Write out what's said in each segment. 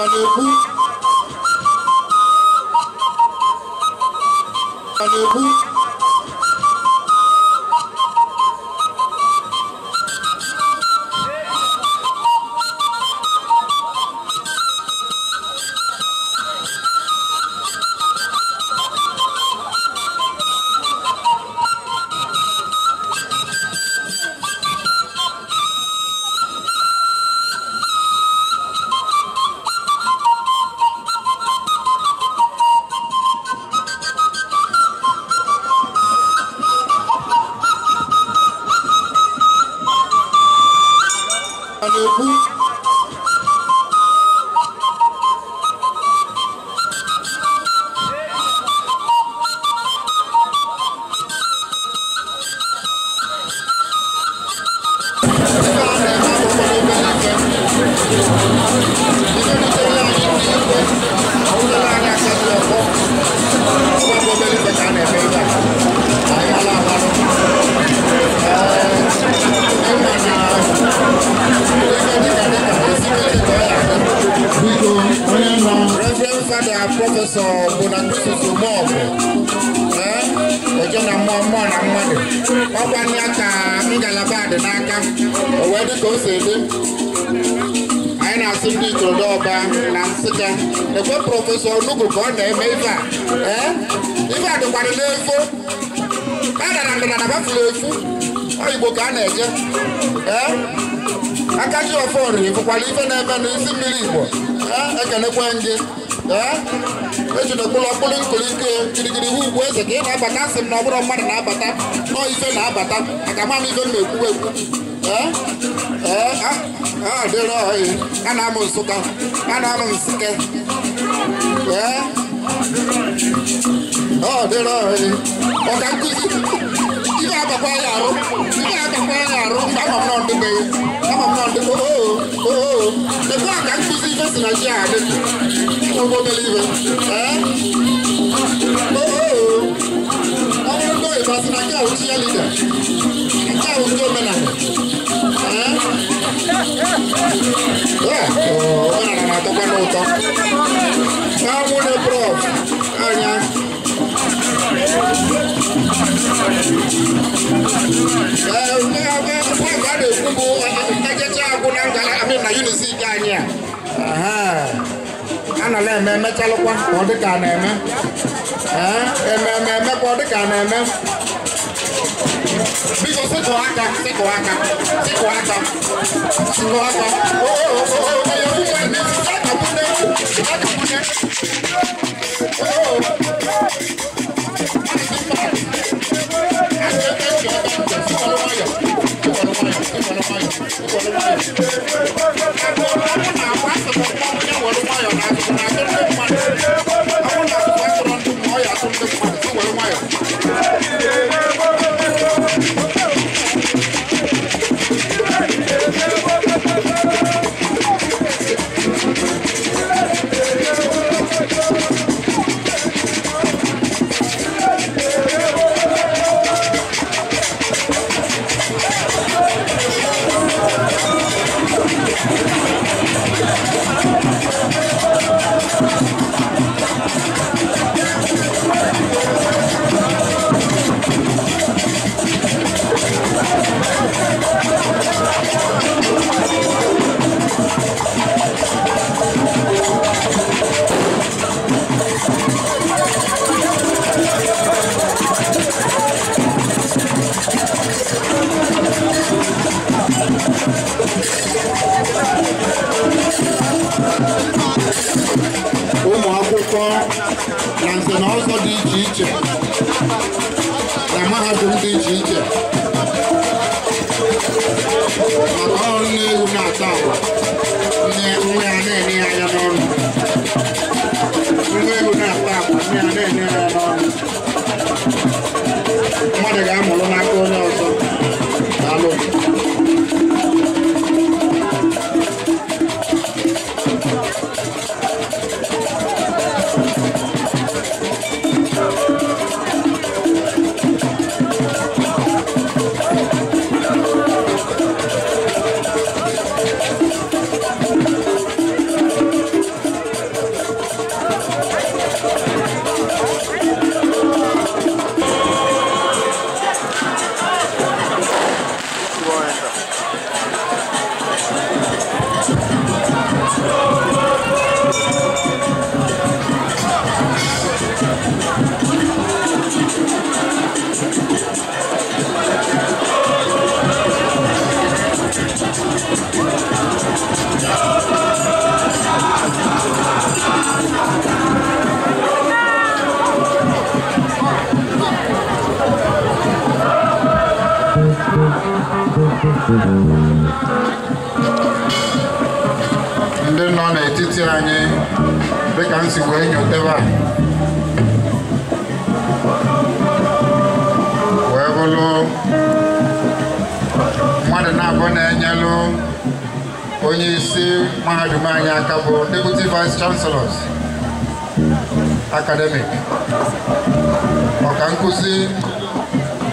Thank you.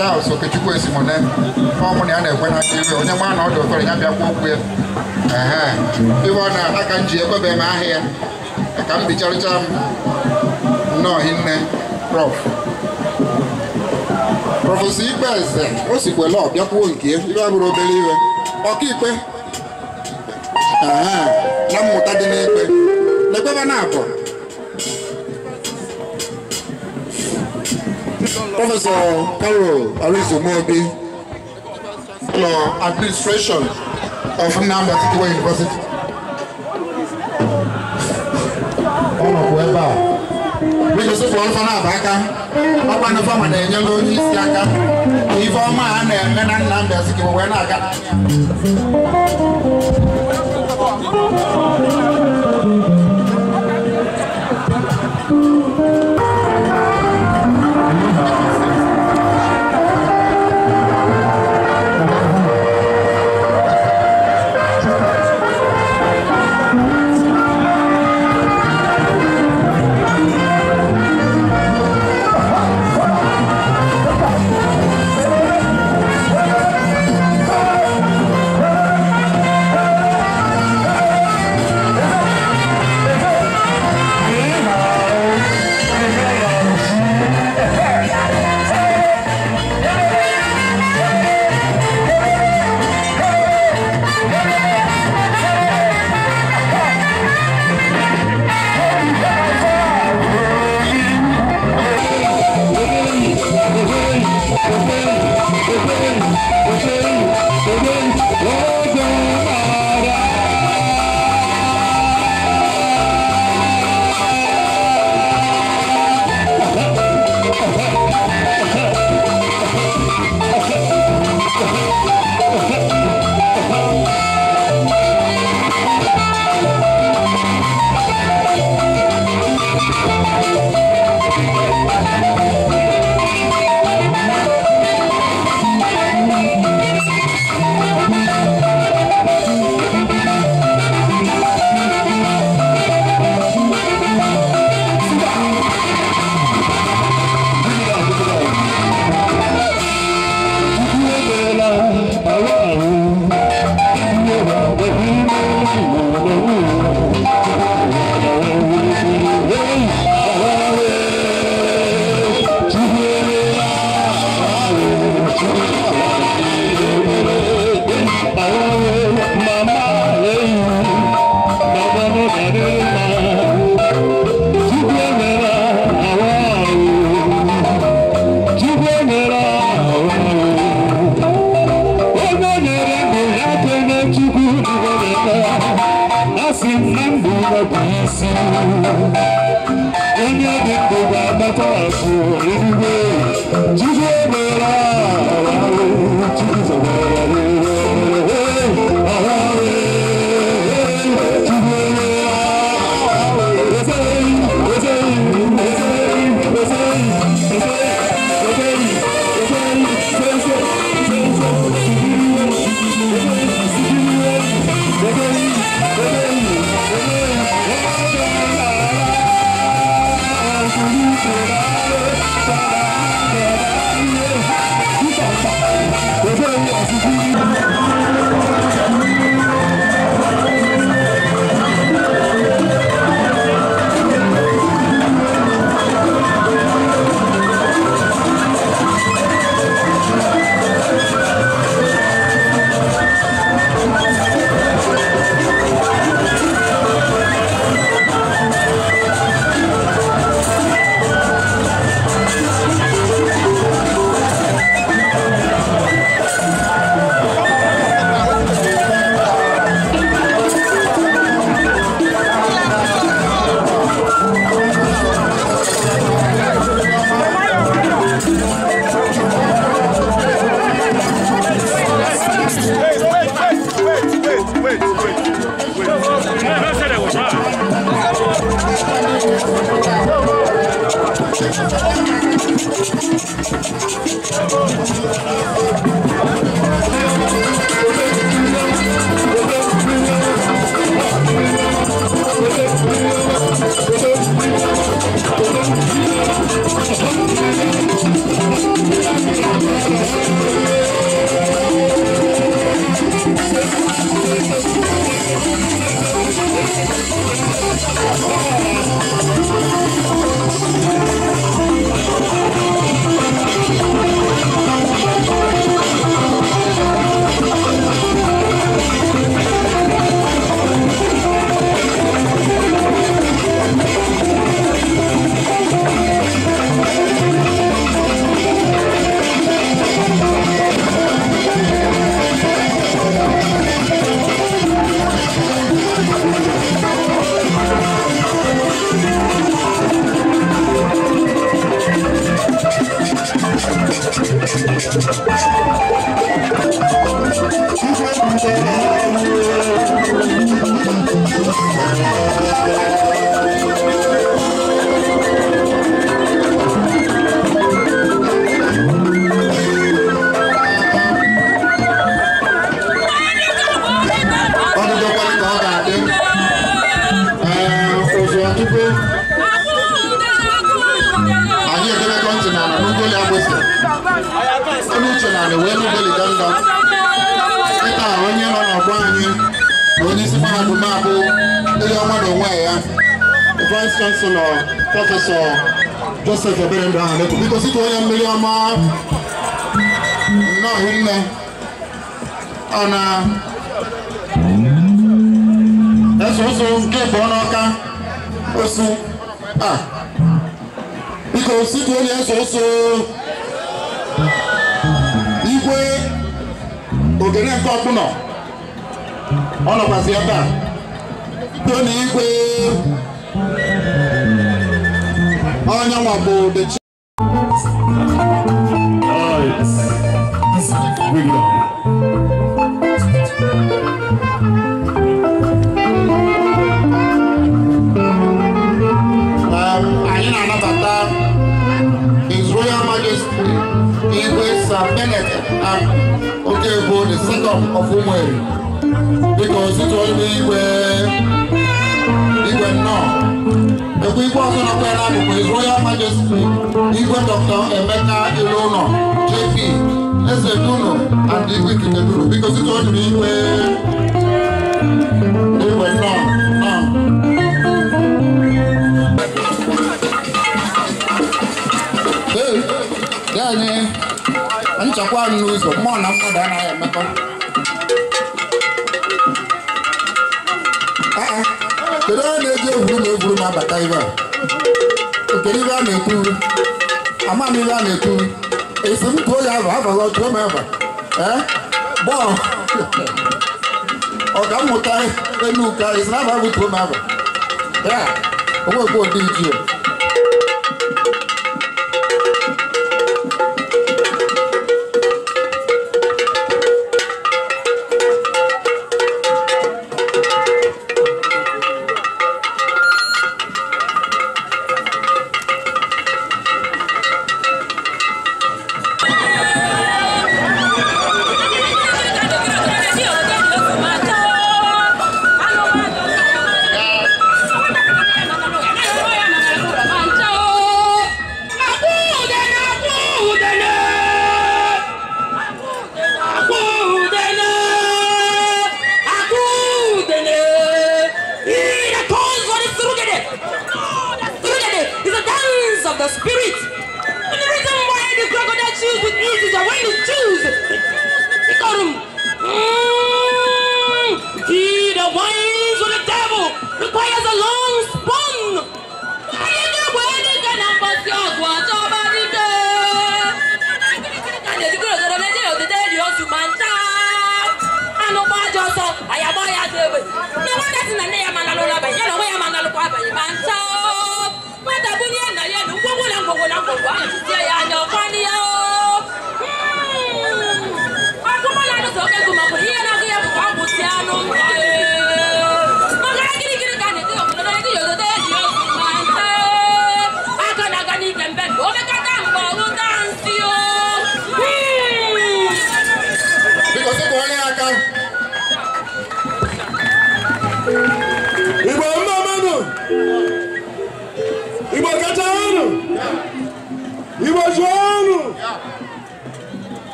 Charles Okechukwu Esimone ọmụ na ya na-ekwe na aka iwe onye mma na dị ụtọrọ ya bịakwa okwu ya iwe ọ na aka m ji ekwebe m ahịa ya ka m bicharịcha m nnọọ hinne prọf prọfesọ ikpe eze o sikwela ọ bịakwuo nke iwe bụrụ obere iwe ọkaikpe na mmụta dị n'ikpe na na abụ Professor Carol Arizomobi lọ administration of Nnamdi Azikiwe University. Ọnọdụ ebe a. Biko sịpụ ọlụfọ na-aba aka, ọkpa na fọma na-enyere isi aka ka ife ọma a na-eme na Nnamdi Azikiwe wee na-aga n'anya. bụkwa Royal Majesty Igwe Dr. Emeka Ilụlọ JP Eze Duno and Igwe Ikike Duno biko site o jiri iwe iwe nnọọ nnọọ anyị nchekwa anyị n'ụzọ mmụọ na mmadụ anaghị emekọ kedu onye na-eji egwuru na egwuru ma abata ibe a I'm a na-ekwu amamiri a na-ekwu esi m ka oyi ahụ abaghị ọtụ ome ebe bọọlụ ọkammụta enuka esi na abaghị otu ome ebe ya to odi iji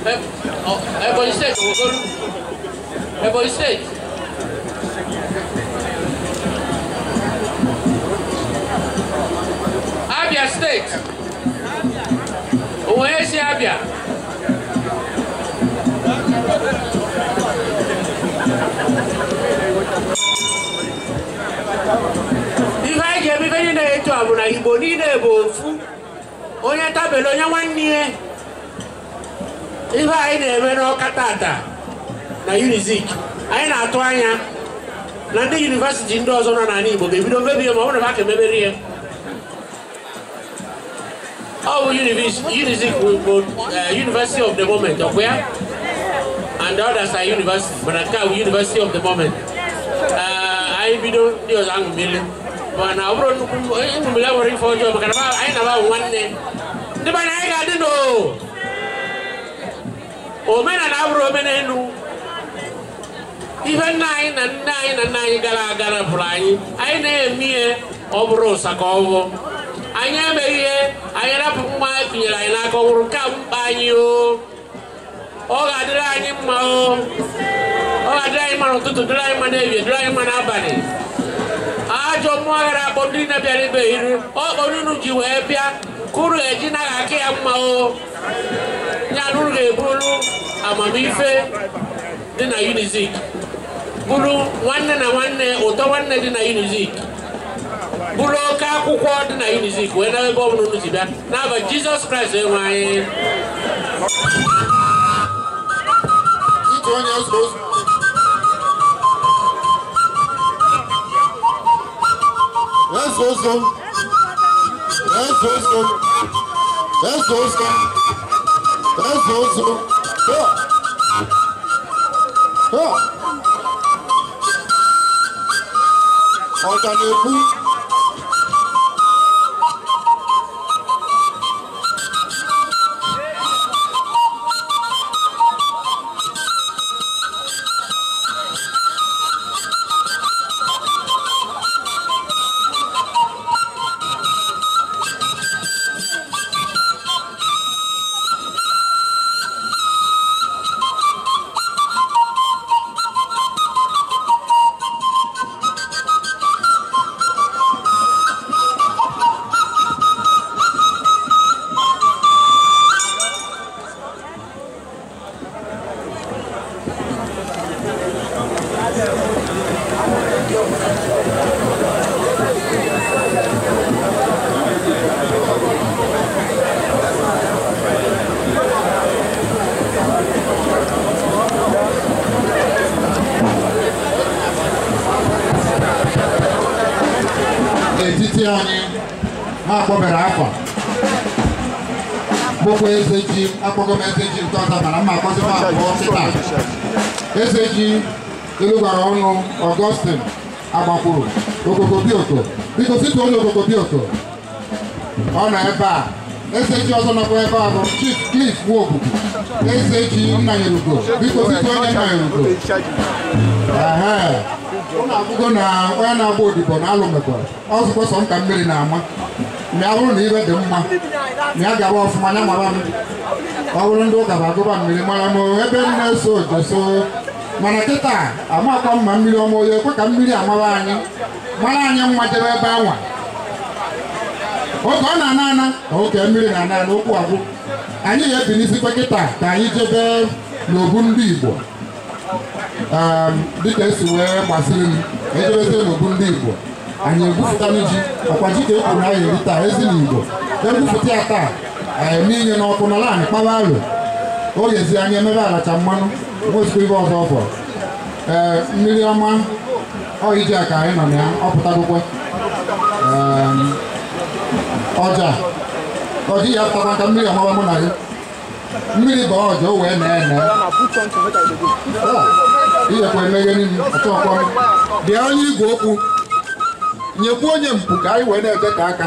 Ebonyi steeti Okoro Ebonyi steeti Abia steeti Owerri si Abia ihe anyị ga-eme niile etu a bụ na Igbo niile bụ ofu onye tabelu onye nwanne ya ife anyị na-eme n'ọka tata na unizik anyị na-atụ anya na ndị yunivesiti ndị ọzọ nọ n'ala Igbo ga-ebido mebie ma ọ na ha ka ya ọ bụ unizik bụ eh, university of the moment ọkwa ya and the others are university mana nke a bụ university of the moment eh, anyị bido ndị ọzọ aṅụmile mana ọ bụrụ nnukwu aṅụmile nwere ife ọjọọ maka na anyị na-abụ nwanne ndị mana anyị ga-adị n'oo omenala abụrụ omenelu ihe nna anyị na nne anyị na nna anyị gara aga napụrụ anyị anyị na-eme ihe ọ bụrụ ụsa ka anyị emeghị ihe anyị rapụ mma tinyere anyị n'aka ọ bụrụ mkpa anyị o ọ ga-adịrị anyị mma o ọ ga-adịrị anyị mma n'ụtụtụ dịrị anyị mma n'ehihie dịrị anyị mma n'abalị ajọ mmụọ gara akpọ ndị na-abịara ibe iri ọ kpọrọ unu ji wee bịa kụrụ eji naghị aka ya mma o ya rụrụ eburu amamife dị na unizik bụrụ nwanne na nwanne ụtọ nwanne dị na unizik bụrụ oke akwụkwọ dị na unizik wee na ebe ọbụla unu ji bịa n'aba jizọs kraịst enwe anyị Let's go, Ben Sousou. Ben Sousou. Ben Sousou. Ó. Ó. Ó. Olu Okobioko ọ nọ ebe a eseji ọzọ nọkwa ebe a bụ Chief Cliff Nwogbu eseji Nnanyerugo biko biko onye Nnanyerugo ụnụ abụgo na onye na-agba odibo na alụ mekwa ọzụkwa sọ nka mmiri na-ama ma ya bụrụ na ibe dị mma ma ya gaba ọfụma ya mara m ọ bụrụ ndị ụka agụba mmiri mara m ebe m na-eso jeso mana kịta amakwa mma mmiri ọma onye ekwe ka mmiri amara anyị mara anyị mma jebe ebe anwa oge ọ na-ana ana oke mmiri na-ana ana ụkwụ agwụ anyị ga-ebi n'isi kịta ka anyị jebe n'obu ndị Igbo ehm, dịka esi wee gbasiri m ejebezie n'obu ndị Igbo anyị egwupụtalụ ji ọkwa ji ka ekwuru anyị eri taa ezi na Igbo egwupụta ya taa eme inye n'ọkụ n'ala anyị kpaba alụ ogezi anya emebe alacha mmanụ nwezikwa ibe ọzọ ọfọ ee ehm, mmiri ọma ọ iji aka anyị nọ na ya ọ ọja ọ ya apụta maka mmiri amaba mụ na gị mmiri bụ ọja wee na-ene ihekwa eme ihe niile ọchọkwa bịa onye igwe okwu nyekwu onye mpụ ka anyị wee na-ete ka aka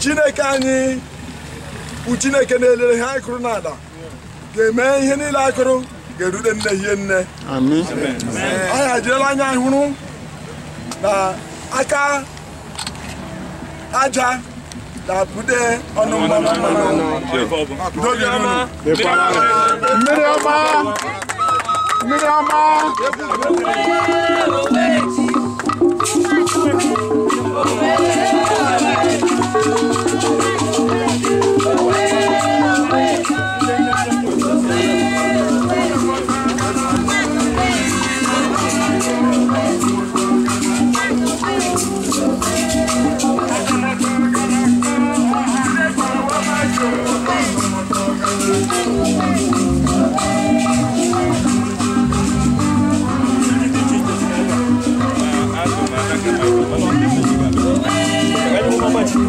chineke anyị bụ chineke na-elere ihe anyị kụrụ n'ala ga-eme ihe niile anyị kụrụ ga-erute nne hie nne anyị ajirela anya hụrụ na aka aja na-apụde ọnụ mmanụ mmanụ mmiri ọma mmiri ọma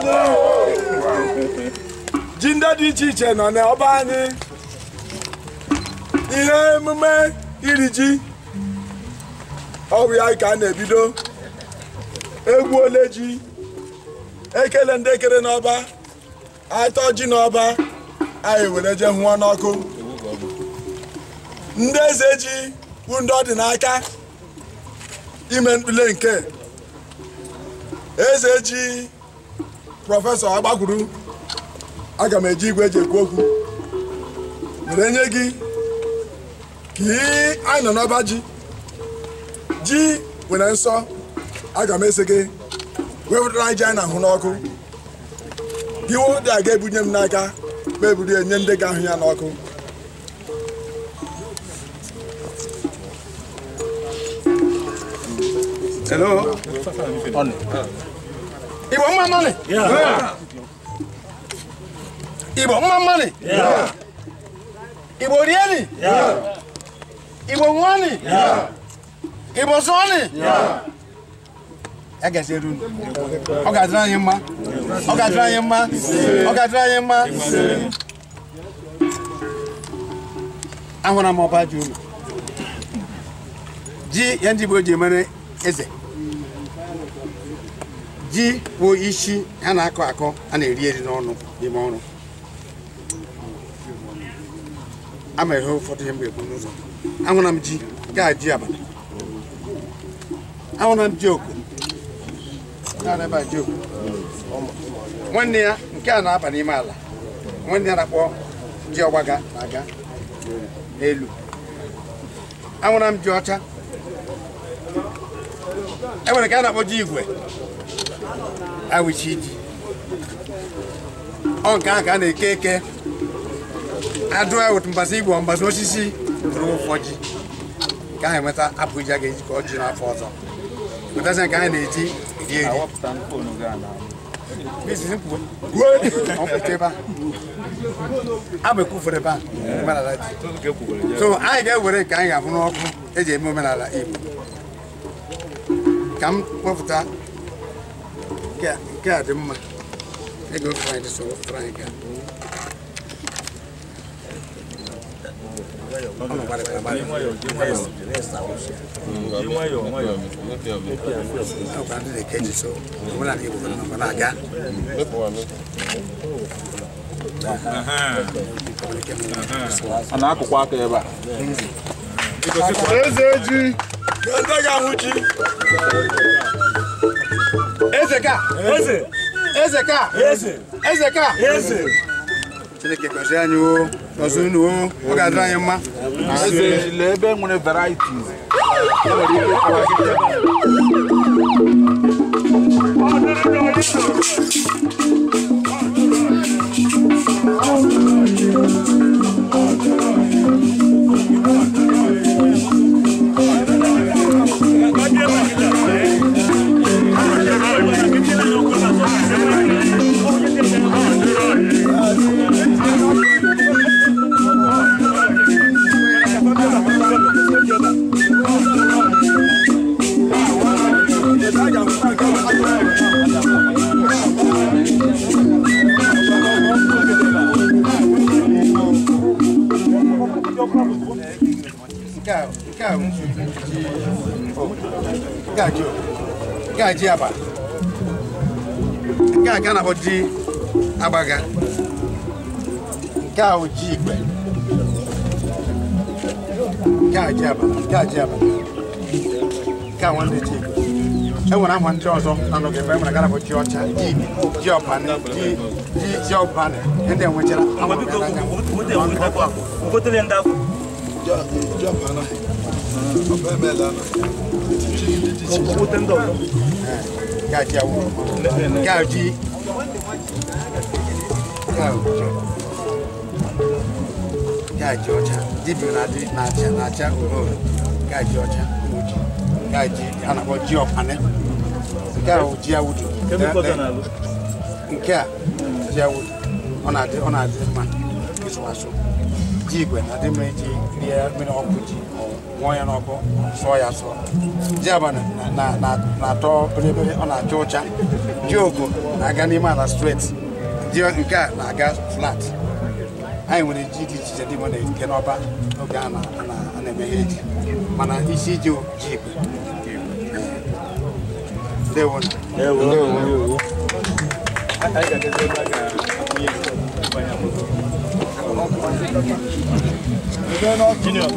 anyị ji ndị dị iche iche nọ n'ọba anyị ihe emume iri ji ọwụ ya ka a na-ebido egwu ole ji ekele ndị ekere n'ọba atọ ji n'ọba anyị were je hụọ n'ọkụ ndị eze ji bụ ndị ọdịnaka dị n'aka ime mkpule nke eze ji prọfesọ agbakwuru aga m eji igwe eji ekwu okwu were nye gị ka anyị nọ n'ọba ji ji nwere nsọ aga m ese gị wepụtara ji anyị na-ahụ n'ọkụ gị dị aga ebunye m n'aka ma eburu enye ndị ga-ahụ ya n'ọkụ Ibo want money? Yeah. yeah. Ibo want money? ni, Ibo really? ni, Ibo money? ni. Ibo Sony? Yeah. I guess you do. I got trying him, ma. I got trying him, ma. I got trying him, ma. I'm gonna mop at you. G. Yandy Boy Jimmy is ji bụ isi a na-akọ akọ a na-eri eri n'ọnụ n'ime ọrụ ama ihe ụfọdụ ihe m ga-ekwu n'ụzọ ahụra m ji gaa ji abalị ahụra m ji oku nwanne ya nke a na-aba n'ime ala nwanne ya na-akpọ ji ọgbaga na-aga n'elu ahụra m ji ọcha e nwere nke a na-akpọ ji igwe awụchi ji ọ nke ahụ ka a na-eke eke adụ awụt mgbasa igbo mgbasa osisi ruo ụfọji ka ahụ enweta apụja ga-eji ka ọ ji n'afọ ọzọ wetazi nke anyị na-eji eri eri abụ ekwufere ebe a so anyị ga-ewere nke anyị ga ọkụ, n'ọkụ eji eme omenala igbo ka m Get, get him. I go find us all, try and get him. a na-akụkwa aka ebe a eze ji Eze ga nwụchi. Eze ka. Eze. Eze ka. Eze. Eze ka. Eze. Chineke gọzie anyị o, gọzie unu o, ọ ga-adịrị anyị mma. Eze lee ebe e nwere varieties. E nwere ike kọwa gị ebe a. Ọ dịrị n'ọdịnihu. nke a nke a nke a ji aba nke a ka na-akpọ ji agbaga nke a bụ ji igbe nke a ji aba nke a ji aba nke a nwanne ji igbe enwere aha ndị ọzọ nanụgị ebe enwere gara bụ ji ọcha ji ọbanị ji ji ọbanị ndị enwechara ìjọba náà ọbẹ bẹ́ẹ̀ lánàá ti ṣe ilé ti ṣe. owó tẹ́ńdọ̀ lọ. gáàjì awo gáàjì gáàjì ọjà dìbò n'àjà n'àjà òhòrò gáàjì ọjà òjì gáàjì anabọ ji ọpanẹ gáàjì ji awudu. nke a ji awudu ọ na-adị ọ na-adị mma ịzụ asụ. ji igwe na-adị mma iji rie mmiri ọkụ ji nwụọ ya n'ọkụ sụọ ya sụọ ji abalị na-atọ belebele ọ na-acha ụcha ji oko na-aga n'ime ala straight ji nke a na-aga flat anyị nwere ji dị iche iche dị nke n'ọba oge a na-eme ihe mana isi ji ji igwe ndewo ndewo Junior.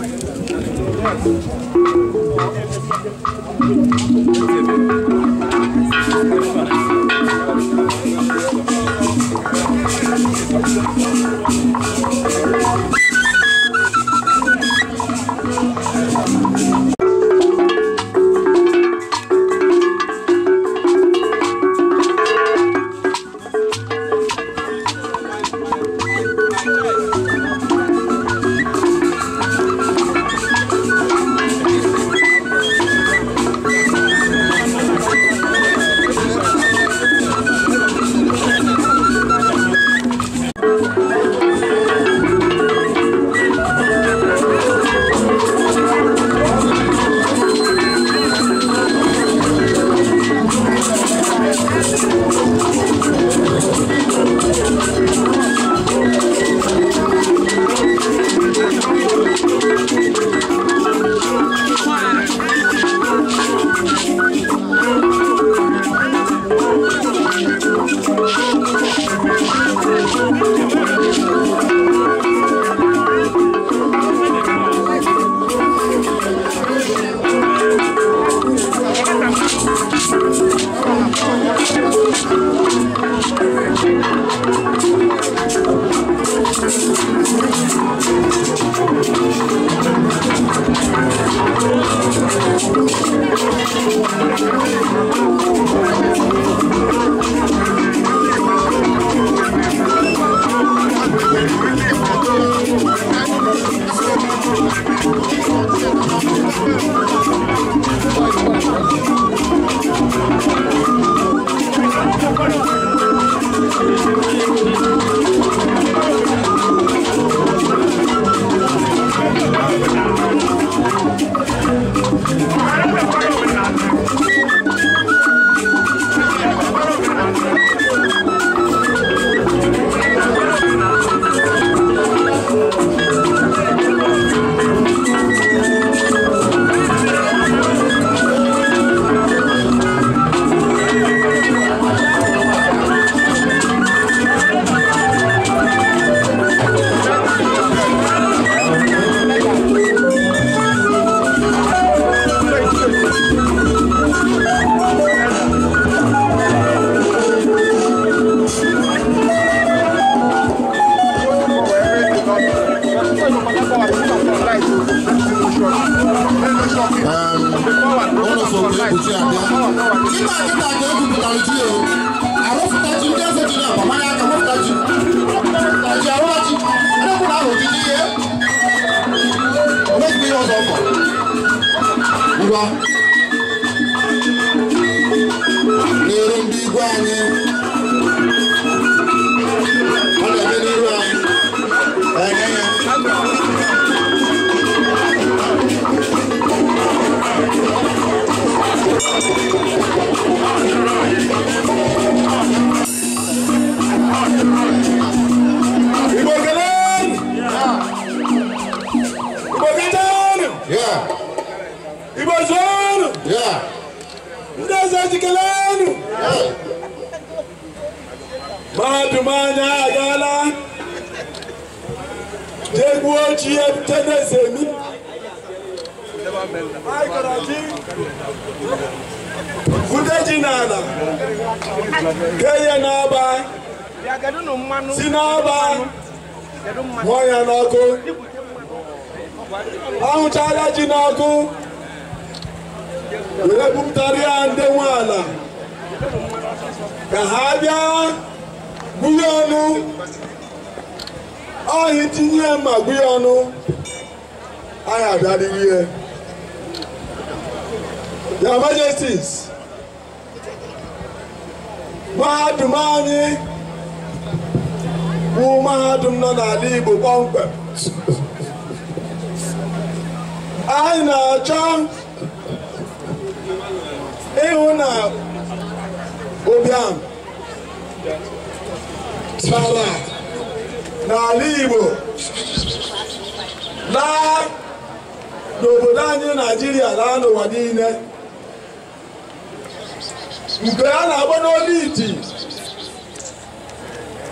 Because I want to lead it.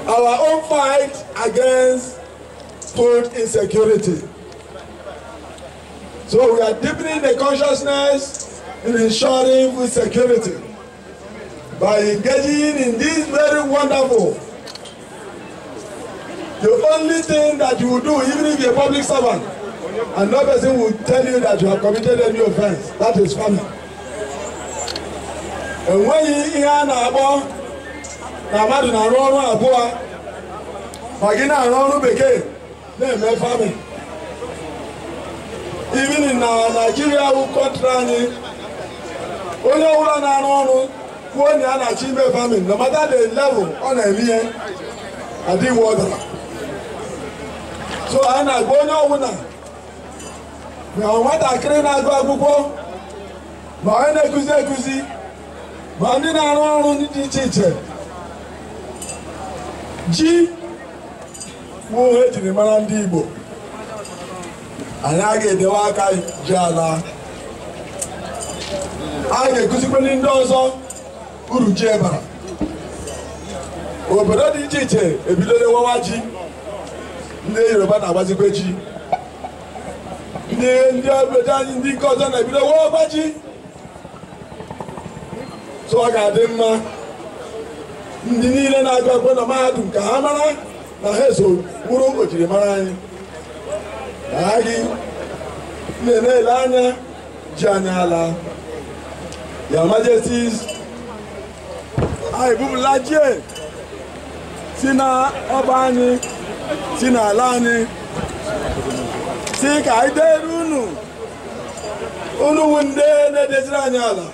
Our own fight against food insecurity. So we are deepening the consciousness in ensuring food security by engaging in this very wonderful. The only thing that you do, even if you're a public servant, and no person will tell you that you have committed any offense, that is funny. enweghị ihe a na-akpọ na mmadụ na-arụ ọrụ abụọ ma gị na-arụ ọrụ bekee na-eme fami ibini uh, na naijiria wụ kọntra anyị onye ọbụla na-arụ ọrụ kwuo na a na-achọ ime famin na mata the level ọ na-eme ihe adịghị ọdara so anyị na-agba onye ọbụla na nwatakịrị na-agụ akwụkwọ ma onye na-ekuzi ekuzi ma ndị na-arụ ọrụ ndị dị iche iche ji bụ ejiri e mara ndị Igbo anyị a ga-edewe aka ji ala a ga-ekụzikwere ndị ọzọ uru ji ebara. obodo dị iche iche ebidola nwewa ji ndị Yoruba na-agbazikwe ji ndị ndị obodo anyị ndị nke ọzọ na-ebido nwewa ji so ọ ga-adị mma ndị niile na-agụ akwụkwọ na mahadum ka ha mara na ha eso bụrụ ojirimara anyị aha gị na-ele anya ji anya ala ya majestis anyị bụbụla jie si na ọba anyị si n'ala anyị si ka anyị deere unu unu wu ndị na-edeziri anyị ala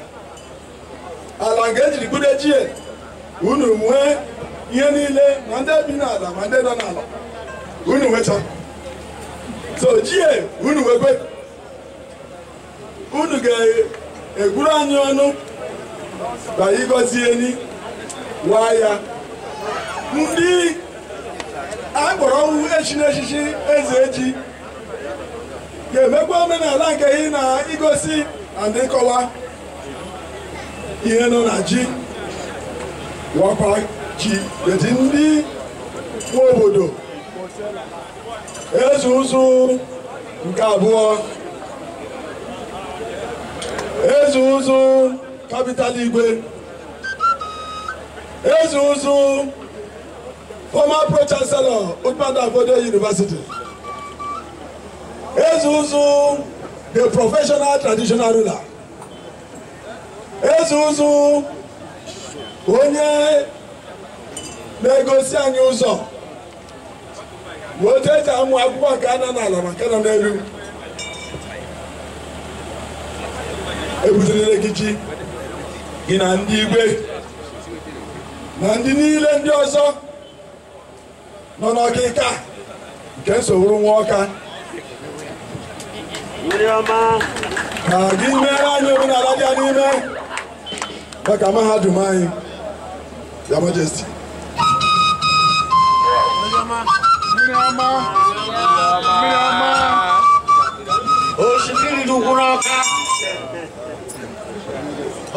ala nke ejiri budo echie unu nwee ihe niile ma ndị bi n'ala ma ndị nọ n'ala unu nwecha so chie unu nwekwe unu ga-egwuru anyị ọnụ ka ịgọzie ni waa ya ndị akpọrọ ọnwụ echi n'echichi eze eji ga-emekwa omenala nke ị na-igosi na ndị ihe nọ na ji wakwa ji eti ndị nwe obodo eze ụzụ nke abụọ eze ụzụ kapital igwe eze ụzụ former pro chancellor Udmada Bodo University eze ụzụ the professional traditional ruler eze ụzụ onye na-egosi anyị ụzọ otu eji amụ akwụkwọ nke ana n'ala maka nọ n'elu ebutere gị ji gị na ndị igwe na ndị niile ndị ọzọ nọ n'ọkịka nke nsogbu nwa ọka ka gị mere anyị omenala dị n'ime kaka mahadum anyị ya majesty osimiri dị ukwuru ọka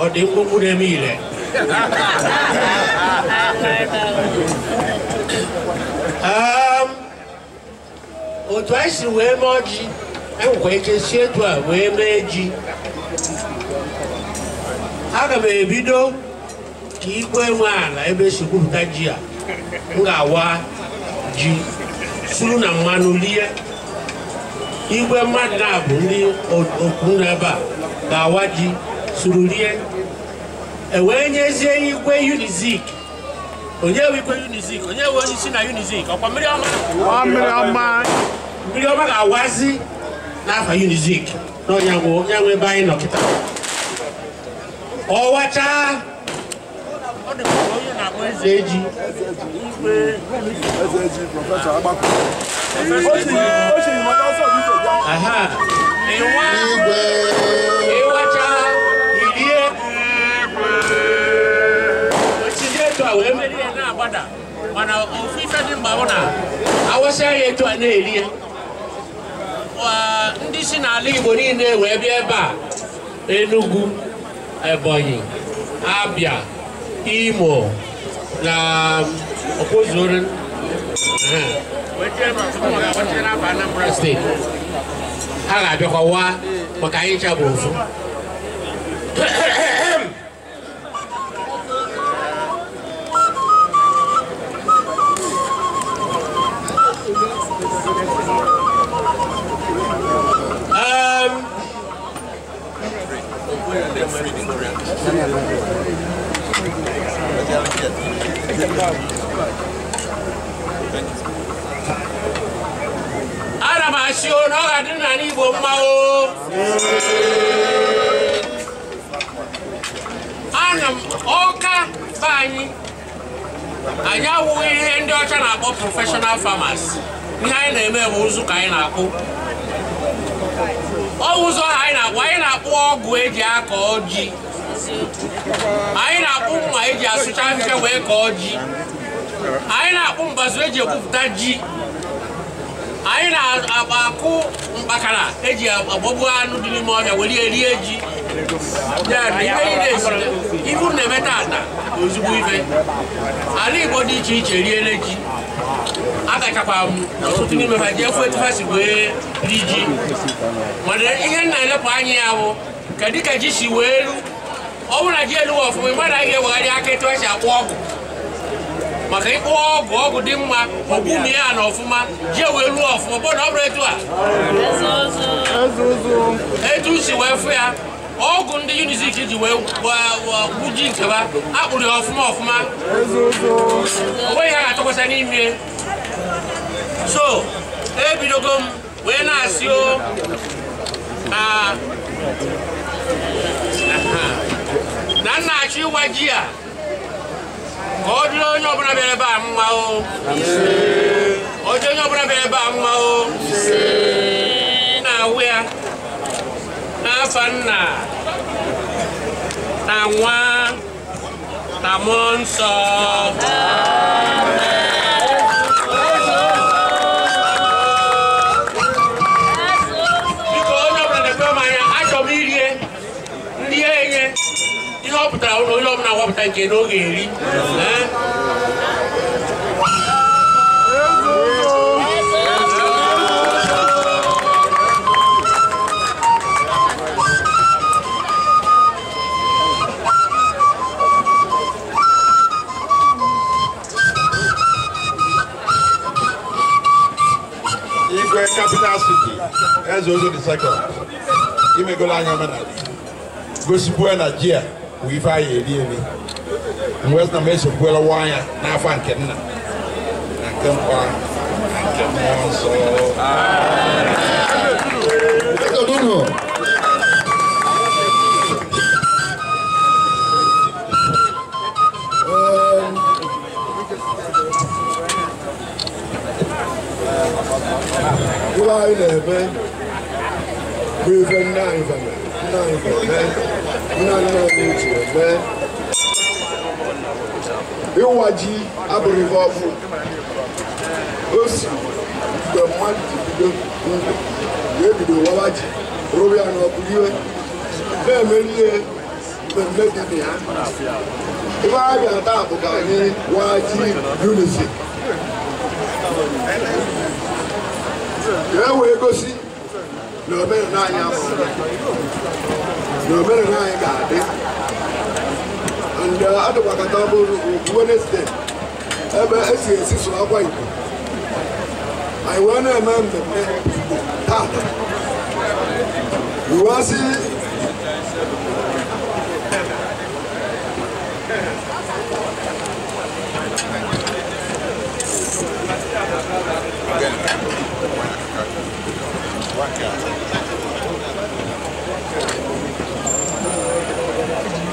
ọ dị mkpụkpụ na-eme ile otu anyị si wee mee ọjị enwekwa ike si etu a wee mee ji aga m ebido ka igwe nwe ala ebe esi gwupụta ji a m ga-awa ji suru na mmanụ lie igwe mmadụ na bụ ndị okwu n'ebe a ga-awa ji suru rie ewee nyezie igwe unizik onye bụ igwe unizik onye bụ onye isi na unizik ọkwa mmiri ọma mmiri ọma ga-awazi n'afọ unizik na onye nwe ebe anyị nọkịta ọwachaa eji dị na ndị si n'ala Igbo niile wee bịa ebe a Enugu Ebonyi, Abia, Imo na Opozorin steeti ha ga-abịakwa waa maka anyị bụ ofu ana m asị o na ọ ga-adị n'ala Igbo mmanwụ o ana m ọka be anyị anyị awụghị ihe ndị ọcha na-akpọ prọfeshọnal farmers ihe anyị na-eme bụ ụzụ ka anyị na-akpụ ọ ụzọ anyị na-akpụ anyị na-akpụ ọgwụ eji akọ ji anyị na-akpụ mma eji asụcha ahịhịa wee kọọ ji anyị na-akpụ mbazụ eji egwupụta ji anyị na-akụ mkpakara eji agbọgbu anụ dị n'ime ọhịa were ya rie ji ibu na-eme tata ozugbo ife ala igbo dị iche iche riele ji agachakwa m ọtụtụ n'ime ha ji efu etu ha si wee ri ji mana ihe nna-elepụ anya ya bụ kedu ka ji si wee ru ọ bụrụ na ji elu ọfụma ị gbara ihe ewegharị aka etu esi akpụ ọgụ maka ịkpụ ọgụ ọgụ dị mma ọgbumi ya na e ọfụma ji wee luo ọfụma bụ na ọ bụrụ etu a etu si wee fụ ya ọgụ ndị unizik ji wee ji nkeba akpụrụ ya ọfụma ọfụma onweghị ha ga-atụkwasa n'ime so ebidogo m wee na-asị o ah, na nna achọ ịwa ji a ka ọ dịrị onye ọbụla bịara ebe a mma o ọjọ onye ọbụla bịara ebe a mma o na-awụ ya n'afa nna na nwa na mmụọ nsọ ilom na wapụta nke na oge eri Igwe Capital City, Eze Ozo the second, imegola anya mena, gosipụ energy a. wife ayɛ ɛdeɛ ni nwes na mɛhyɛ kuɛla wanya n'afa nke nna na nke nkwa na nke mmụọ nsọ ụlọ anyị na-ebe bụ ife nna anyị nna anyị iwadzi aborivo avu osi gbẹmọ adidido ndo yebido wawadzi robi anu ọkùnrin bẹẹ mẹlẹ gbẹmẹ dìbì hàn ìwà ayé ata àbùkà ní wájí unisi yẹ wo egosi na obere na anyị amụrụ na obere na anyị ga-adị ndị adịgbakọta bụrụ ugwu Wenesde ebe esi esi so akwa Igbo anyị wee na-eme mmemme Igbo taa iwe asị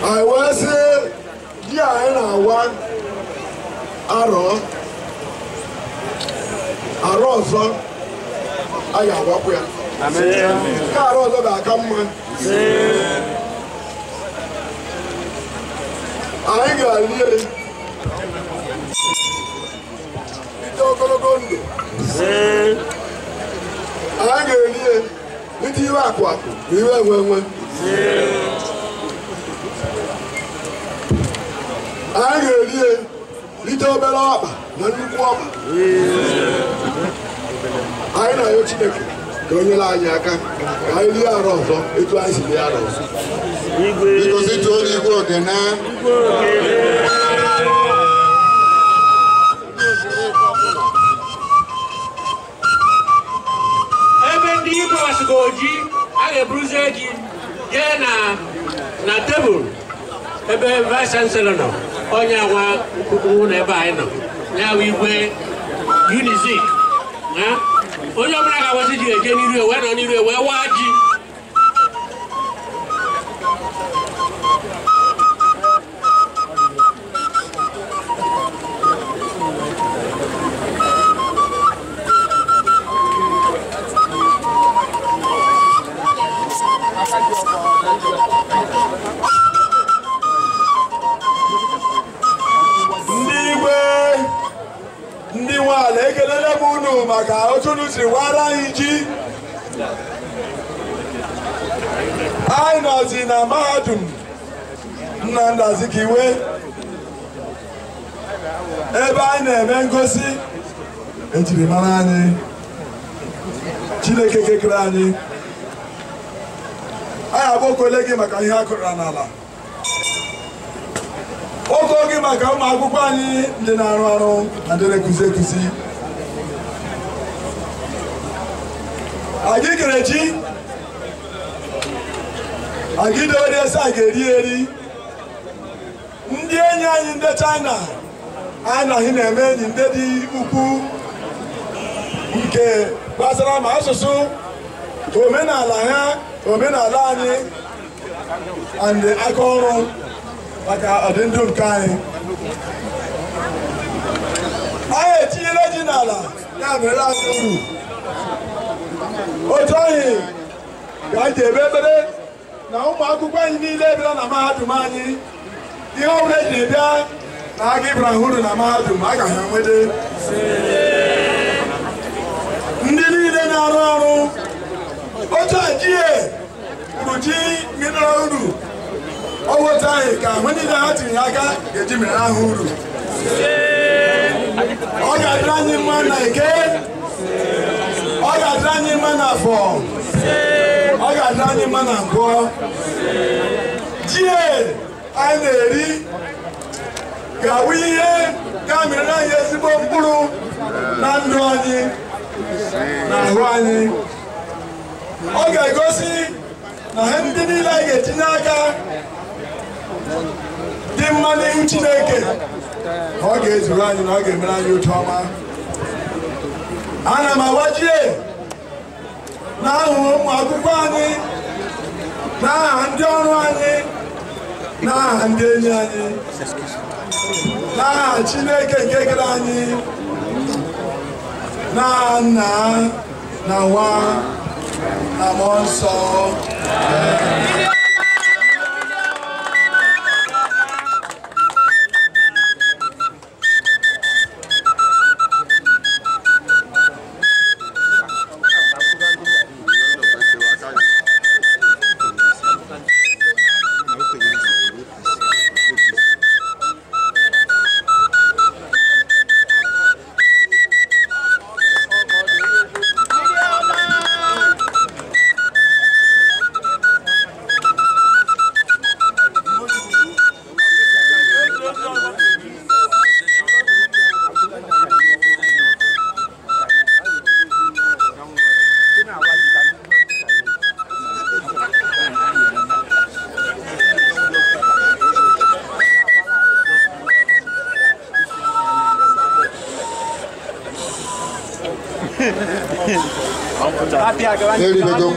I will say, yeah, and I want arrow, arrow, so I am what we are. Arrow, so that come on. I ain't got it. It's all going to anyị ga-eri ya ite iwe akụ akụ na iwe enwe enwe anyị ga-eri ya ite obere ọkpa na nnukwu ọkpa anyị na-ayọ Chineke ka o nyere anyị aka ka anyị rie arọ ọzọ etu anyị si rie arọ ọzọ igwe igwe na. ndị bọs ga oji a ga-eburuzie gị jee na tebụl ebe vice chancellor nọ onye nwa nkwukwu n'ebe ebe anyị nọ ya bụ igwe unizik onye ọbụla ga-agbazi ji eje n'iru wee nọ n'iru wee waa ji ndị igwe ndị ala ekelele m unu maka otunu siri wara anyị ji anyị nọzi na mahadum Nnamdi Azikiwe ebe anyị na-eme ngosi ejirimara anyị Chineke kekere anyị anyị abụ okole gị maka ihe a kụrụra n'ala oko gị maka ụmụ akwụkwọ anyị ndị na-arụ arụ na ndị na-ekuzi ekuzi anyị kere ji agidori ese a ga-eri eri ndị enyi anyị ndị chaịna anyị na anyị na-eme enyi ndị dị ukwu nke gbasara ma asụsụ omenala ha omenala anyị and aka ọrụ maka ọdịndụ nke anyị anyị etinyela ji n'ala ya mere anyị uru otu anyị ka anyị ebe ebere na ụmụ akwụkwọ anyị niile bịara na mahadum anyị ihe ọbụla eji na-ebịa na aga ịbara hụrụ na mahadum a ha ndị niile na-arụ ọrụ otu otuajie kpuchi mịnara uru ọwụta anyị ka mgbe niile ha tinyere aka ga-eji ahụ uru ọ ga-adịrị anyị mma na ike ọ ga-adịrị anyị mma na afọ ọ ga-adịrị anyị mma na mbụọ jie anyị na-eri ga-awụ ihe ga-amịrị anyị ezigbo mkpụrụ na ndụ anyị na ahụ anyị ọ ga-egosi na ha ndị niile a ga-etinye aka dị mma n'ihu Chineke ọ ga-ezuru anyị na ọ ga-emere anyị otu ọma ana m agbajie na ahụ ụmụ akwụkwọ anyị na aha ndị ọrụ anyị na aha ndị enyi anyị na aha Chineke nke kere anyị na nna na nwa la mort sort.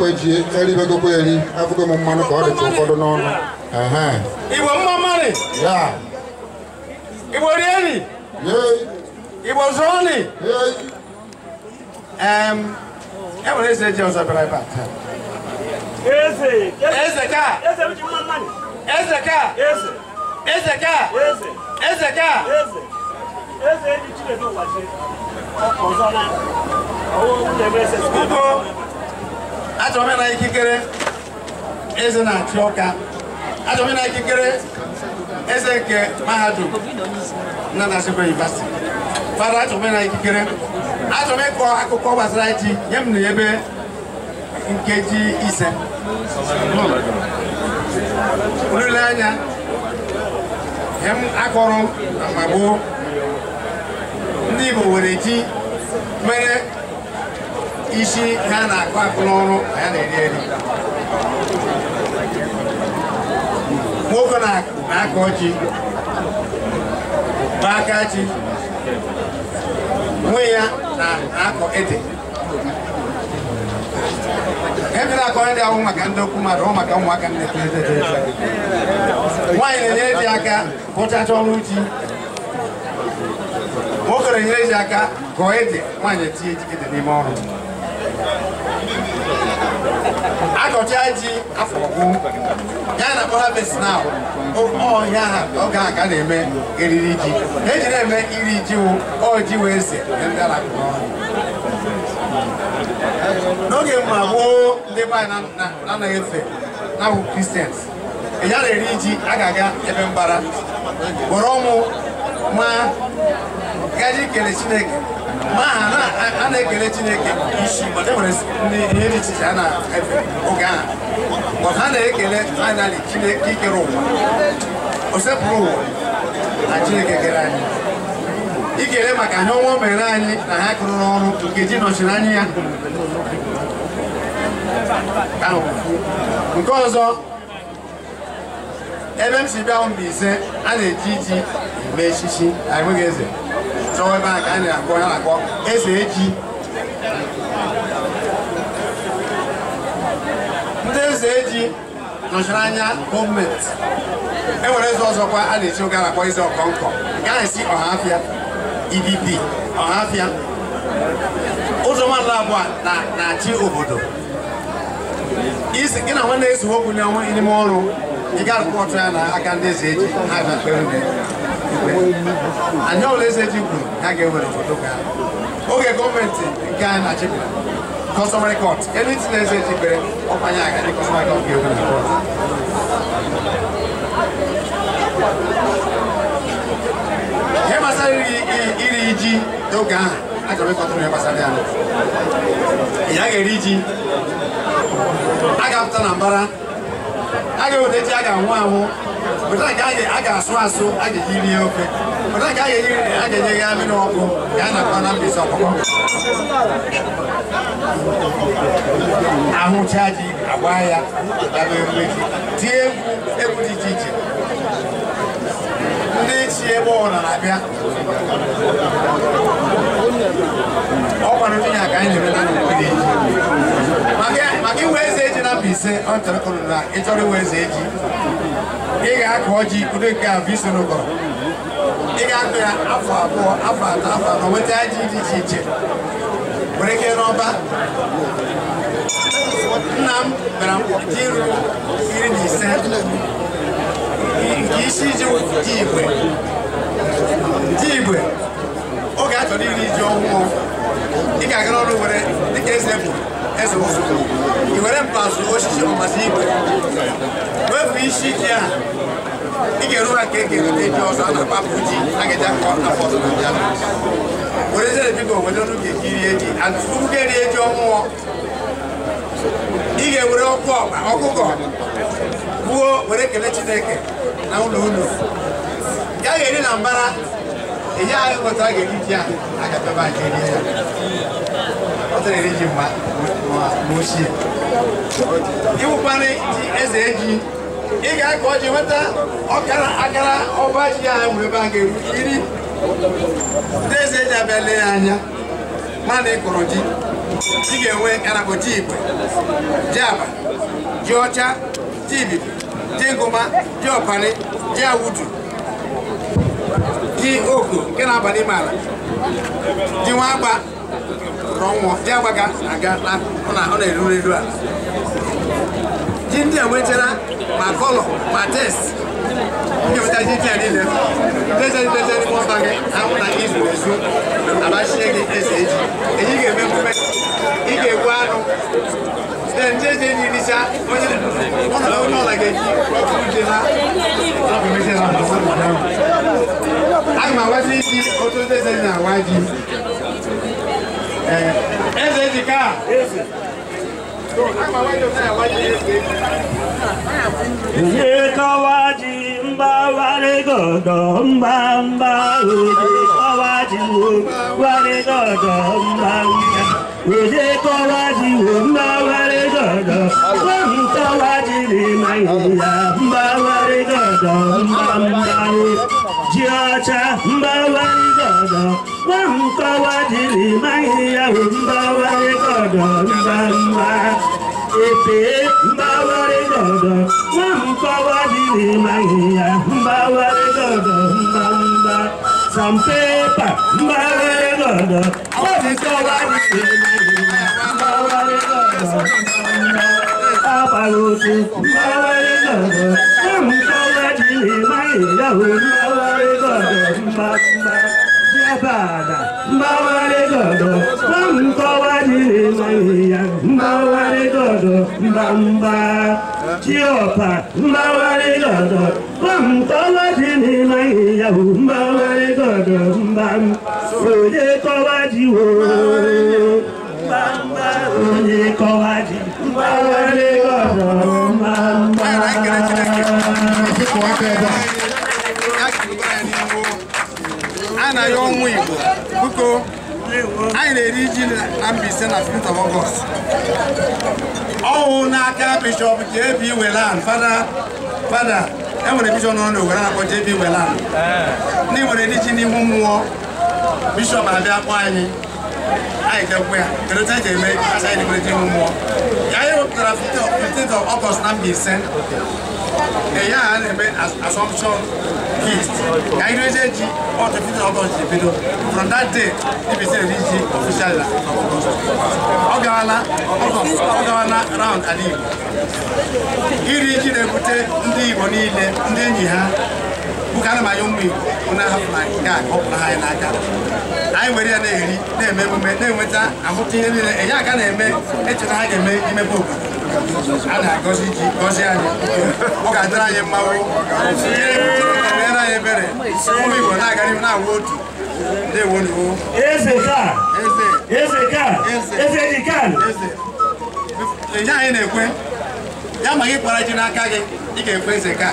ko ejie eri be ko eri afuko mo mmanụ ka ọ dị ụfọdụ n'ọnụ igbo mmamari ya igbo rieri igbo zụọni enwere eze eji ọzọ bịara ebe a taa eze ka eze ka eze ka eze ka eze eji chinedu ụwa chi ọzọ na ọwụ nwunye m eze achọrọ m ikikere eze na-achị ọka achọrọ m ikikere eze nke mahadum na Nsukka University fada achọrọ m ikikere m ịkọ akụkọ gbasara ji nye m na ebe nkeji ise olileanya ihe m akọrọ na mgbe ndị Igbo were ji isi ha na-akụ akụ n'ọrụ ka ya na-eri eri nwoke na-akọ ọchị n'aka chi nwe ya na-akọ ede ebe na-akọ ndị ahụ maka ndị okwu mmadụ ọ maka ụmụaka nnepe nwaanyị na enye ji aka bụchacha ọrụ ji nwoke na-enyere ji aka gọọ ede nwaanyị etinye ede n'ime ọrụ ọchaji afọ ọgwụ ya na harvest now ọhịa ha ọ ga-aga na-eme eriri ji eji na-eme iri ji ọji wee se n'oge mma gboo ndị be anyị anaghị efe na-ahụ kristians ya na-eri ji a ga-aga ebe mbara gwọrọ ụmụ ma gaji kele chineke ma a na-ekele Chineke isi mana e nwere ihe dị iche iche a na-efe oge ahụ ma ha na-ekele faịnali Chineke ikere ụwa osepụrụ sepụrụ ụwa na Chineke kere anyị ikele maka ha ọnwa mere anyị na ha kụrụ n'ọrụ nkeji nọchiri anyị ya nke ọzọ ebe m si bịa bụ ise a na-eji iji mee echichi anyị nweghị eze nọwa ebe a ka na-akpọ ya akpọ eze eji ndị eze eji e nọchara anya gọọmenti enwere eze ọzọkwa a na-eji oge na-akpọ eze ọkọnkọ nke anyị si ọhafịa e ọha ọhafịa ụzọ nwanne abụọ na-achị obodo gị na nwanne ezughị okwu n'ime ọrụ ị ga ya na aka ndị eze eji ha anya ole eze eji kwuru ha ga-ewere foto oge gọọmenti nke a na-achịpụta kọsọmarị kọt elu eze eji kpere ọkwanye aga ndị kọsọmarị kọt na ihe iri ji n'oge ya eri ga-apụta na mbara a ga-eweta ji a ga-anwụ anwụ weta nke a ga-asụ asụ a ga-eji rie ofe weta nke a ga-enye ya amịrị ọkụ ka a na-akpa na mbizi ọkpọkọ ahụcha ji agba ya dabe ji tie egwu egwu dị iche iche ndị chi ebe ọbụla na-abịa ọkwara ka anyị eji maka iwe ọ ịchọrọ iwe eze akụ bụ ị ga ya afọ abụọ afọ atọ afọ anọ nweta dị iche iche were ike n'ọba nna m iri na ise nke isi ji igwe oge a chọrọ iri ji ị ga-agara ọrụ were dịka eze bụ eze ozugbo ị were mpazụ osisi ọmazi igwe wepụ isi ike a ị ga-eru ụra ka e ga-erute ji ọzọ a na-akpapụ ji a ga-eji akọ afọ ọzọ na were eze biko were ọrụ ga-eji rie ji and tupu gị erie ji ọhụụ ị ga-ewere ọkụ ọkpa ọkụkọ gbuo were kelee chineke na ụlọ unu ya ga-eri na mbara ihe anyị ụbọchị a ga-eri ji a agapebe anyị rie ya ọ na-eri ji ma ochie ịwụkwana ji eze eji ị ga-akọ ọjị nweta ọkara akara ọba ji ya nwere ebe a ga-eru iri ndị eze eji abịa lee ya anya mana ị kọrọ ji ji ga-enwe karabụ ji igwe ji aba ji ọcha ji ibibi ji ngụma ji ọpani ji awudu ji oku nke na-aba n'ime ala ji nwa agba rọnwụọ ji agbaga aga ọ na-eru n'elu ala ji ndị enwetara ma kọlọ ma test nkepụta ji ndị a niile dezedeze n'ime ọba gị ahụ na izu ezu abachie gị eze eji eji ga-eme ị ga anụ then change the initial. One of them like a proper dinner. I'm a wájú sí ọtú tẹsán ní àwájú. Ẹsẹ̀ ti ká. Ìyè kọ́wájì ń bá wálé gọ̀gọ̀ ń bá ń bá òde kọ́wájì ń bá wálé gọ̀gọ̀ ń bá wí wèlé kọ́wájì òǹbá wárí gọ̀dọ̀ wọ́n kọ́wájì ní màyìnlá mbá wárí gọ̀dọ̀ mbá mbárí jí ọ̀chá mbá wárí gọ̀dọ̀ wọ́n kọ́wájì ní màyìnlá mbá wárí gọ̀dọ̀ mbá mbárí èpè mbá wárí gọ̀dọ̀ wọ́n kọ́wájì ní màyìnlá mbá wárí gọ̀dọ̀ mbá some paper mbare gondo odi to wa ni mbare gondo abalutu mbare gondo mu to wa ni mai ya wo mbare gondo mbamba yabada mbare gondo mu to wa ni mai ya mbare gondo mbamba chiopa mbare gondo kọ́wá di ní láyé ọ̀húnbá wáyé gbọ́dọ̀ ń bá ń òye kọ́wá di wò òye kọ́wá di wáyé gbọ́dọ̀ ń bá ń bá. a na-ayọ ọnwụ Igbo biko anyị na-eri ji na Mbaise na 15 of August ọnwụ n'aka Bishọp J.B. Whelan fada fada enwere bishọp nọrọ n'Owerri na-akpọ JB Welland eh. ndị nwere ndị ji n'ihu mmụọ bishọp abịa kpọ anyị anyị jekwa ya kedu ka anyị ga-eme kacha anyị na-emerete ihu mmụọ ya anyị wepụtara 15 August na mba ya a na-eme assumption feast ka anyị reje ji ọtụ 15 August from that day dibisi eri ji official la ọ gawala ọ gawala round ala Igbo iri ji na-ebute ndị Igbo niile ndị enyi ha bụka ana m anya ụmụ Igbo na-ahapụ na ọ ha n'aka anyị were ya na-eri na-eme emume na-enweta amụta ihe niile enye aka na-eme echeta ha ga-eme imepe obodo a na-agọzi ji gọzie anyị ọ ga-adịrị anyị mmanwụ mere anyị ebere ụmụ Igbo na-agarị na-awụ otu ndewo n'iwu enye anyị na-ekwe ya ma gị kpara ji n'aka gị ị ga-ekwe eze ka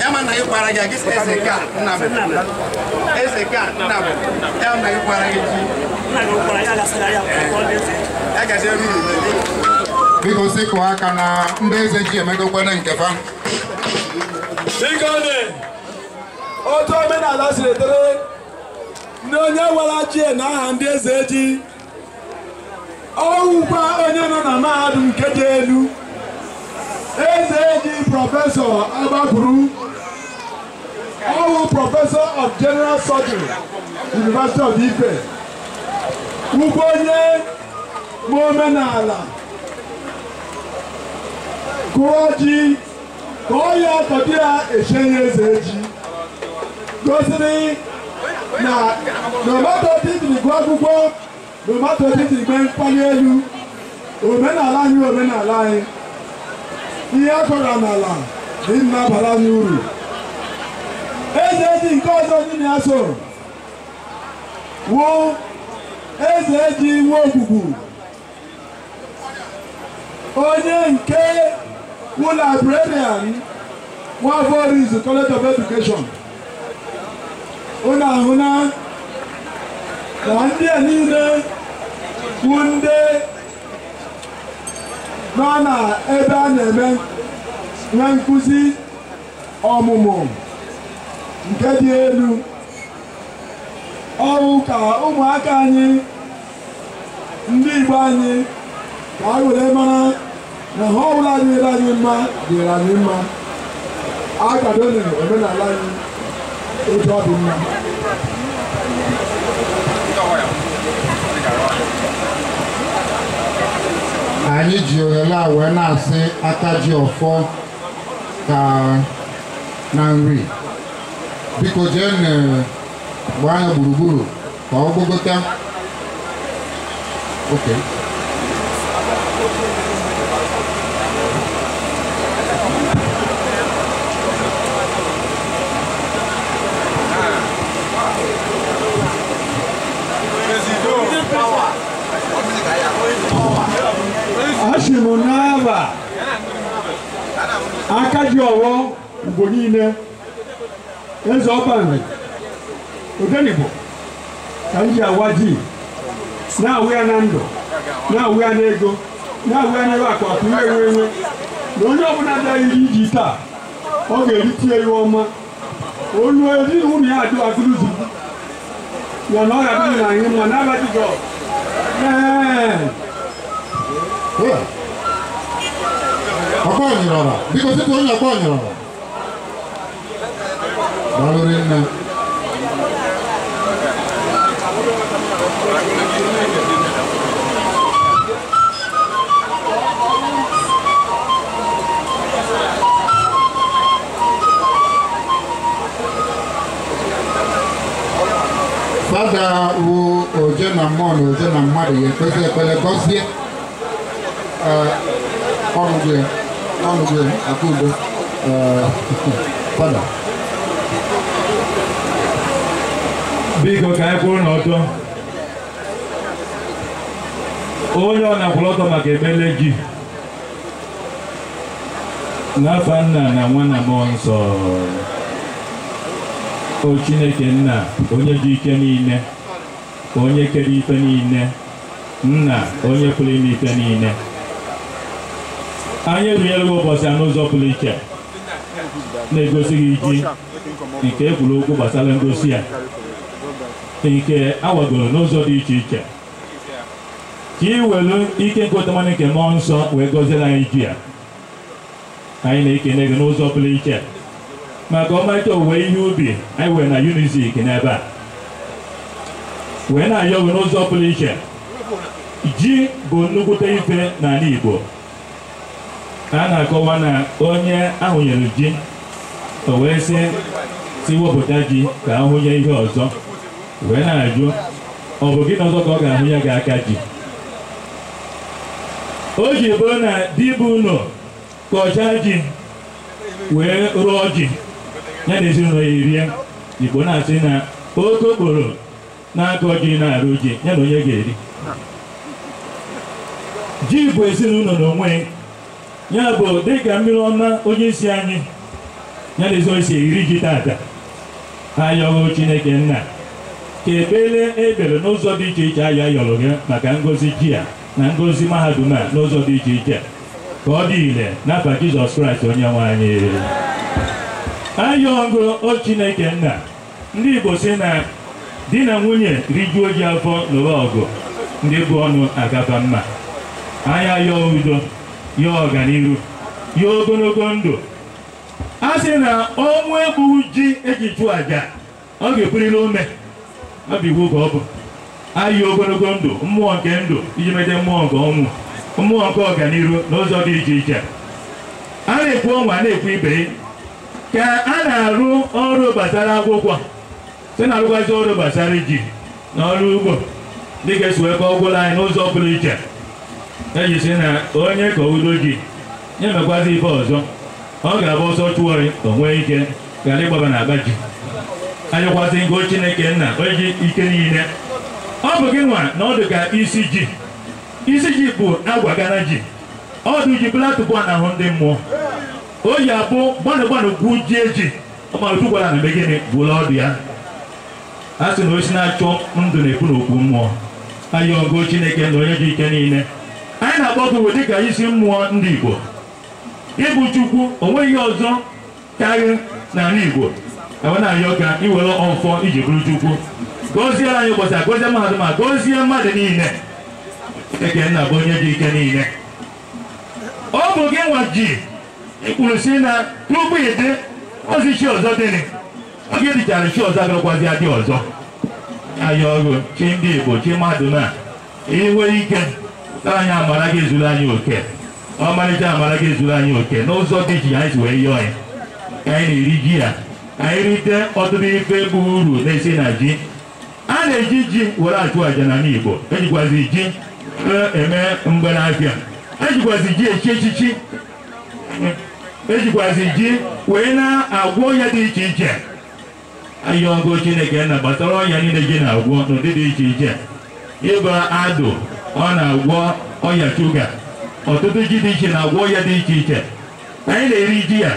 ya ma na ị gwara gị gị eze ka nna eze ka nna ya ma ị gwara gị ji ya gazi eru biko si kụọ aka na ndị eze ji emegokwene nke fa otu omenala siri tere, na onye wara ji na aha ndị eze ji ọwụkwa onye nọ na mahadum nke dị elu AJD Professor Abakuru, Awu Professor of General Surgery, University of Ife, ugbo onye ma omenala kụọ ji ka ọ ya ọtọdị ya echenye eze ji gosiri go, no matter what akwụkwọ nomato titiri gbe mkpali elu omenala anyị omenala anyị ihe akọrọ n'ala dị mma bara anyị uru eze eji nke ọzọ dị na so wụ eze eji iwe ogbugbu onye nke wụ librarian Nwavorizu College of Education unu ahụ na ndị a niile wụ ndị nọ na ebe a na-eme nwe nkụzi ọmụmụ nke dị elu ọrụ ka ụmụaka anyị ndị Igbo anyị ka anyị were mara na ha ọbụla anyị mma dịrị anyị mma akwadone omenala anyị otu ọ dị mma anyị ji oghele a wee na-asị aka ji ọfọ ka na nri biko jee gbaa ya gburugburu ka ọ gbogota Okay. n'ihi m n'aba aka ji ọwọ mgbe niile eze ọbanri odenibo ka m ji awa ji na-awụ ya na ndụ na-awụ ya n'ego na-awụ ya n'ebe akpa pụrụ enwe enwe na onye ọbụla bịaghị iji taa ọ ga-erite ya ọma olu ezinụlọ ya adụ agụrụzi ya na ọ ga-adị na anyị mma n'abatịgọ ee ọgbọnyịrọra biko tupu onye ọgbọnyịrọra gbarụrị nne fada wo oje na mmụọ na oje na mmadụ ya ekpezi ekpele gọzie ọrụ gị ya fada biko ka anyị kwụrụ n'ọtọ onye ọ na-akwụrụ ọtọ maka emele gị nna na nwa na nsọ o Chineke nna onye ji ike niile onye kere ike niile nna onye pụrụ ime niile anyị ebinyela gị ụbọchị ya n'ụzọ pụrụ iche na-egosi gị ji nke ekwuru okwu gbasara ngosi ya nke awagoro n'ụzọ dị iche iche ka ị welu ike nkụtamanụ nke mmụọ nsọ wee gọziere anyị ji ya anyị na-ekene gị n'ụzọ pụrụ iche maka ọmarịcha owuwe ihe ubi anyị were na unizik n'ebe a wee na-ayọ gị n'ụzọ pụrụ iche ji bụ nnukwute ife n'ala Igbo a na-akọwa na onye ahụnyere ji o wee sị si ji ka ahụnye ihe ọzọ wee na-ajụ ọ bụ gịnị ọzọ ka ọ ga-ahụnye gị aka ji o ji bụrụ na bụ ụlọ kọchaa ji wee rụọ ji ya na ezinụlọ ya erie igbo na-asị na oke okporo na-akọ ji na-arụ ji ya na onye ga-eri ji bụ ezinụlọ n'onwe ya bụ dịka mmiri ọma onye anyị ya na ezi isi eri ji taata ayọghụ chineke nna ka ebele ebere n'ụzọ dị iche iche anyị ayọrọ gị maka ngozi ji a na ngozi mahadum a n'ụzọ dị iche iche ka ọ dị ire n'afọ jizọs kraịst onye nwe anyị ayọghụ o chineke nna ndị igbo si na di na nwunye rijuo ji afọ n'ụwa ọgụ ndị bụ ọnụ agaba mma anyị ayọghụ udo ya ọganihu ya ogologo ndụ a sị na ọnwụ egbughị ji eji chụọ aja ọ ga-ebuliri ome ọ bụ iwu ka ọ bụ ayị ogologo ndụ mmụọ nke ndụ iji mede mmụọ nke ọnwụ mmụọ nke ọganihu n'ụzọ dị iche iche a na-ekwu ọnwa na-ekwu ibe ka a na-arụ ọrụ gbasara akwụkwọ site na arụgwazi ọrụ gbasara ji na ọrụ ugbo dịka esi wee kọọ ọgwụrụ anyị n'ụzọ pụrụ iche ejisi na onye ka udo gị nyemekwazi ife ọzọ ọ ga-abụ ọsọ chụọ ka o nwee ike ghara ịgbaba na agba ji anyịkwasị ngo chineke nna onye ike niile ọ bụ gị nwa na ọ dị ka isi ji isi ji bụ agwagana ji ọdụ ji platụbọ ahụ ndị mmụọ o yi abụ gbanụgbanụ gwu ji eji ọmalụtụ gwara na mgbe gịnị bụla ọdụ ya a sị na osi na-achọ ndụ na-ekwu n'okwu mmụọ ayọgo chineke na onye ji ike niile anyị na-agba owe dịka isi mmụọ ndị Igbo ịbụ Chukwu onweghị ihe ọzọ karịa n'ala Igbo ewe na-arịọ ka iwere ọfọ iji bụrụ Chukwu gọzie anyị ụbọchị a gọzie mahadum a gọzie mmadụ niile ekenna bụ onye dị ike niile ọ bụ gị nwa ji ịkwuru si na tupu ịdị ozi chi ọzọ dịrị oge dịchara chi ọzọ agakwazi adị ọzọ anyị ọrụ chi ndị Igbo chi mmadụ na ihe nwere ike anyị amara gị ezuru anyị oke ọmarịcha amara gị ezuru anyị oke n'ụzọ dị iche anyị si wee yọọ ya ka anyị na-eri ji ya anyị rite ọtụtụ ife bụ uru na-esi na ji a na-eji ji were achụ àjà n'ala Igbo ejikwazi ji e eme mgbanafịa ejikwazi ji echi echichi ejikwazi ji wee na-agwọ ọnya dị iche iche ọgụ Chineke na gbasara ọnya niile ji na-agwọ n'ụdị dị iche iche ịba adụ ọ na-agwọ ọya shuga ọtụtụ ji dị iche na-agwọ ọya dị iche iche anyị na-eri ji ya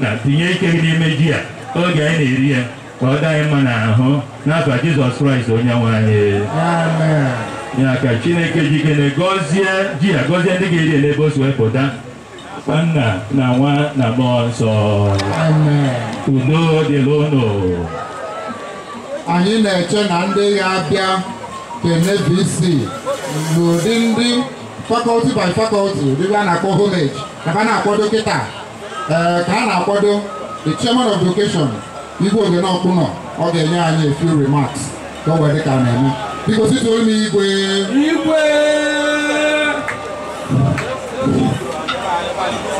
na tinye ike gị n'ime ji ya oge anyị na-eri ya ka ọ dị anyị mma n'ahụ n'afọ Jizọs Kraịst onye nwe anyị ya ka Chineke jikere gọzie ji ya gọzie ndị ga-eri ya n'ebe o si wepụta nna na nwa na mmụọ nsọ udo dịla ụnụ anyị na-eche na ndị ga-abịa KNVC bụ ụdị ndị Faculty by fakọlti dịbe a na-akpọ homage maka na-akwado kịta ee ka a na-akwado the chairman of education igwe ogene ọkpụnọ ọ ga-enye anyị a few remarks ka o wee dịka a na-eme biko situo m igwe igwe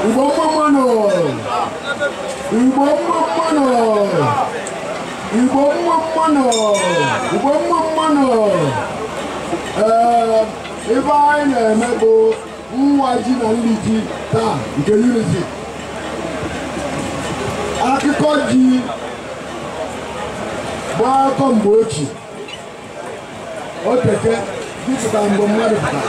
Igbo mmanụ Igbo mmanụ igwe mmụọ mmanụ Igbo nwa mmanụ ebe anyị na-eme bụ nwa ji na nri ji taa nke unity akụkọ ji bụ akụkọ mgbe o teke dịpụta mgbe mmadụ pụta,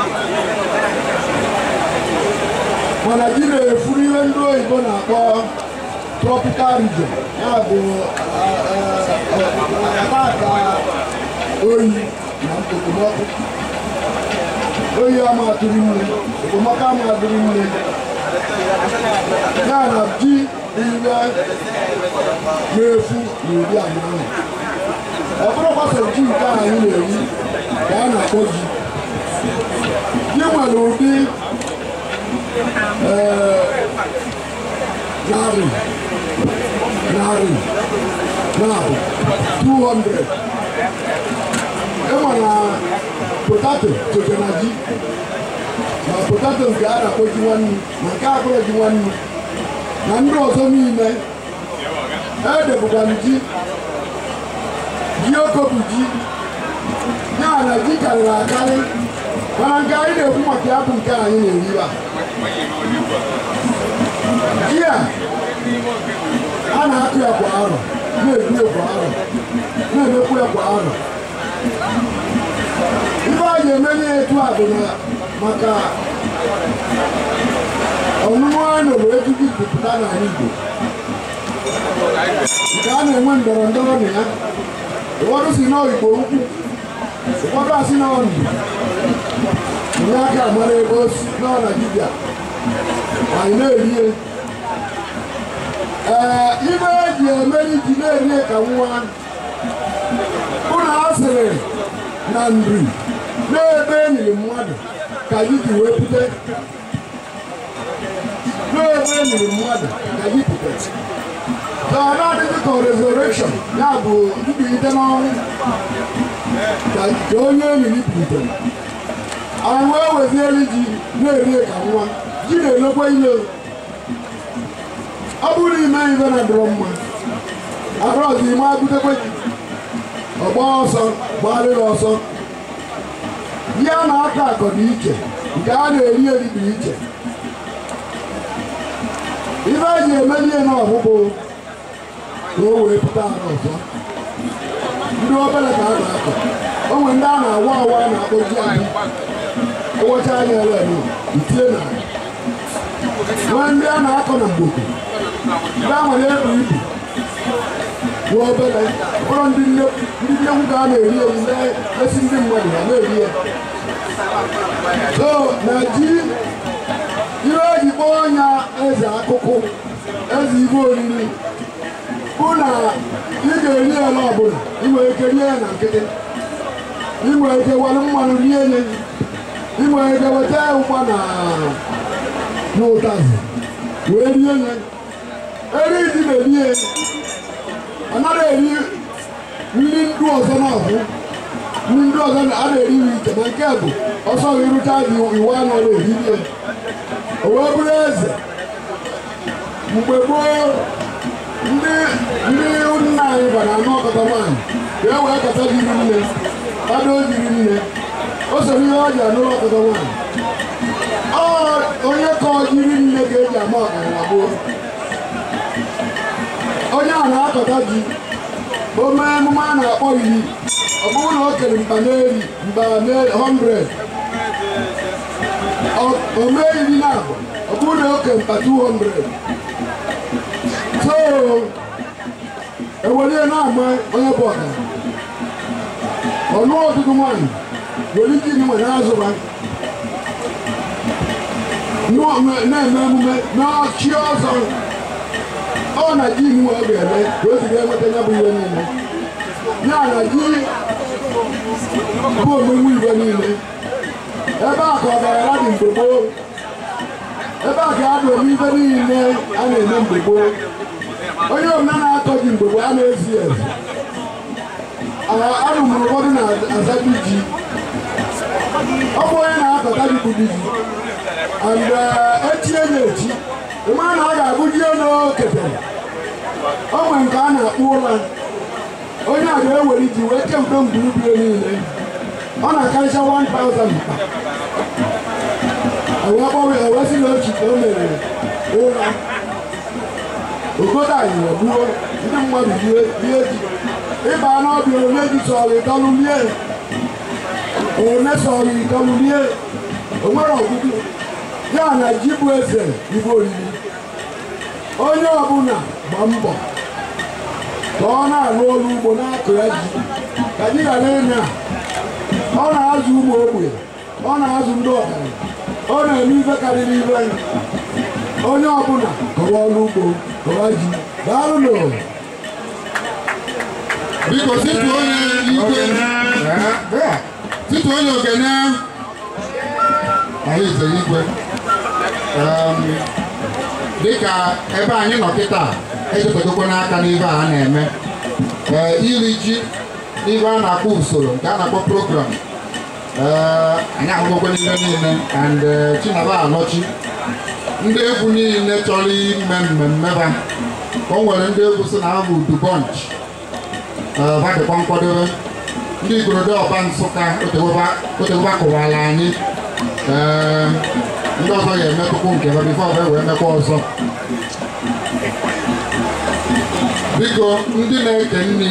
mana ji na-efuru ihe ndị oyibo na-akpọ tropical region ya bụ apata oyi na okpomọkụ oyi ama atụrụ ime okpomọkụ ama atụrụ ime ya na ji ire na-efu na iri anyị ahụ ọ bụrụkwa so ji nke anyị na-eri ka a na-akpọ ji ji nwere ụdị Nari, Nari, Nari, 200. Ema na potato chochonaji. Na potato nke a na-akpọ ji nwannu, na nke akpọrọ ji nwannu. Na ndị ọzọ niile, edebụkwa m ji, ji oko bụ ji. Ya na ji karịrị akarị, mana nke anyị na-ekwu maka ya bụ nke anyị na ihe a na-akụ ya kwa arọ na-egbu ya kwa arọ na-emekwu ya kwa arọ ibe a ga-eme na etu a bụ na maka ọnụnụ anụ bụ ejiji jupụta n'ala Igbo nke a na-enwe ndọrọ ndọrọ na ya ụfọdụ si na ukwu ụfọdụ asị na ọnụ onye aka amara ebe o si nọ anyị na-eri Eh, ibe eji emeri ji na-eri ka nwa ụlọ asịrị na nri n'ebe enyi mmadụ ka anyị ji wepụta n'ebe enyi mmadụ ka anyị pụta tọọrọ adịghị ka resurrection ya bụ mbilite n'ọnwụ ka onye enyi bilitere anyị wee weziere ji na-eri ka nwa ji na-elekwa ile ọ bụrụ na ime ibe na dụrụ mma abụrọzi ime abutekwe gị ọgba ọsọ gbarịrị ọsọ ya na-akọ akọ dị iche nke a na-eri eri dị iche ibe e ji emeli ihe n'ọgwụgwụ ka o wee pụta ala ọzọ ndị obere ka a ga akọ o nwere ndị a na-awa awa a na-akpọji anyị ụbọchị anya ele itie na nwee ndị a na-akọ na mgboko dáhùn ẹ̀rọ yìí wọ ọbẹ̀rẹ̀ ọ̀rọ̀ ndị nnekwu ka a na-eri eri na-esi ndị mmadụ ha na-eri ya so na ji ihe oyibo ọnya eze akụkụ eze ibe oriri bụ na ị ga-eri ya ọbụla ị nwere ike rie na nkịtị ị nwere ike were mmanụ rie ya ị nwere ike weta ya na ụtazị wee rie ya eri ji na-eri eri ọ naghị eri nri ndu ọzọ n'ahụ nri ndu ọzọ a na-eri nri iche na nke bụ ọsọ gị rụchaa gị iwu anọ na-eri ya o wee bụrụ eze mgbe gboo ndị ndị nna anyị bara anọkọta nwaanyị wee wee kọta jiri nne kpado jiri nne o soro ihe ọ ji ọkọta nwaanyị onye ka ọ jiri nne ga-eji ama ọkara na gboo onye ahụ akọta gị, o mee emume a na-akpọ iri ọ na o kere mba n'eri mba 100 o mee iri na ọ bụrụ na oke mba 200 so ewere na-ama onye bụ ọka ọnụ ọtụtụ nwaanyị were ike iri nwere azụ na-eme emume n'ọchị ọzọ ọ na ji iwu ọ ga-eme ka o si ga-enweta ya bụ ihe niile ya na ji bụ ome igwe niile ebe a ka dị ebe a ka ya na-eme niile a na-eme mgbe gboo onye omenala na-atọ ji mgbe gboo a na-ezi ezi arụmụrụ ụfọdụ na-azabi ji ọ bụ onye na-akọta ji bụ ji mmadụ ọ ga-abụji n'okete o nwere nke a na-akpọ ụra onye a ga-ewere iji wee kemgbe mgburugburu niile ọ na-akarịcha 1000 wee gbanwe ewesị na ochite o mere ụra ogodo anyị gbuo ndị mmadụ rie ji ịba n'ọbịa onye ji sọrọ ịdọlụ rie onye sọrọ ịdọlụ rie o nwere ọgụgụ ya na ji bụ eze igbo oriri onye ọbụla gba mbọ ka ọ na-arụ ọrụ ugbo na-akụ ya ji ka anyị ghara ịnya ọ na-azụ ụmụ ogbe ọ na-azụ ndị ọgaranya ọ na-eme ife karịrị ibe anyị onye ọbụla kọwa ọrụ ugbo kọwa ji daalụ n'ụlọ biko titụ onye ikwe titụ onye okenye ahụ ize igwe ehm, dịka ebe anyị nọ kịta ejepụtakwa n'aka n'ibe a na-eme ee iri ji n'ibe a na-akpọ usoro nke a na-akpọ program ee anyị ahụgokwa n'ihe niile and e, Chinaba anọchi ndị egwu niile chọrọ ime mmemme ba o nwere ndị egwu si na ha bụ dubonch badịkwa nkwadobe ndị igorodo ọba Nsụka otewoba kụwara anyị ee ndị ọzọ ga-emetụkwu nke ha bifo ha wee mekwa ọzọ biko ndị na-eke nri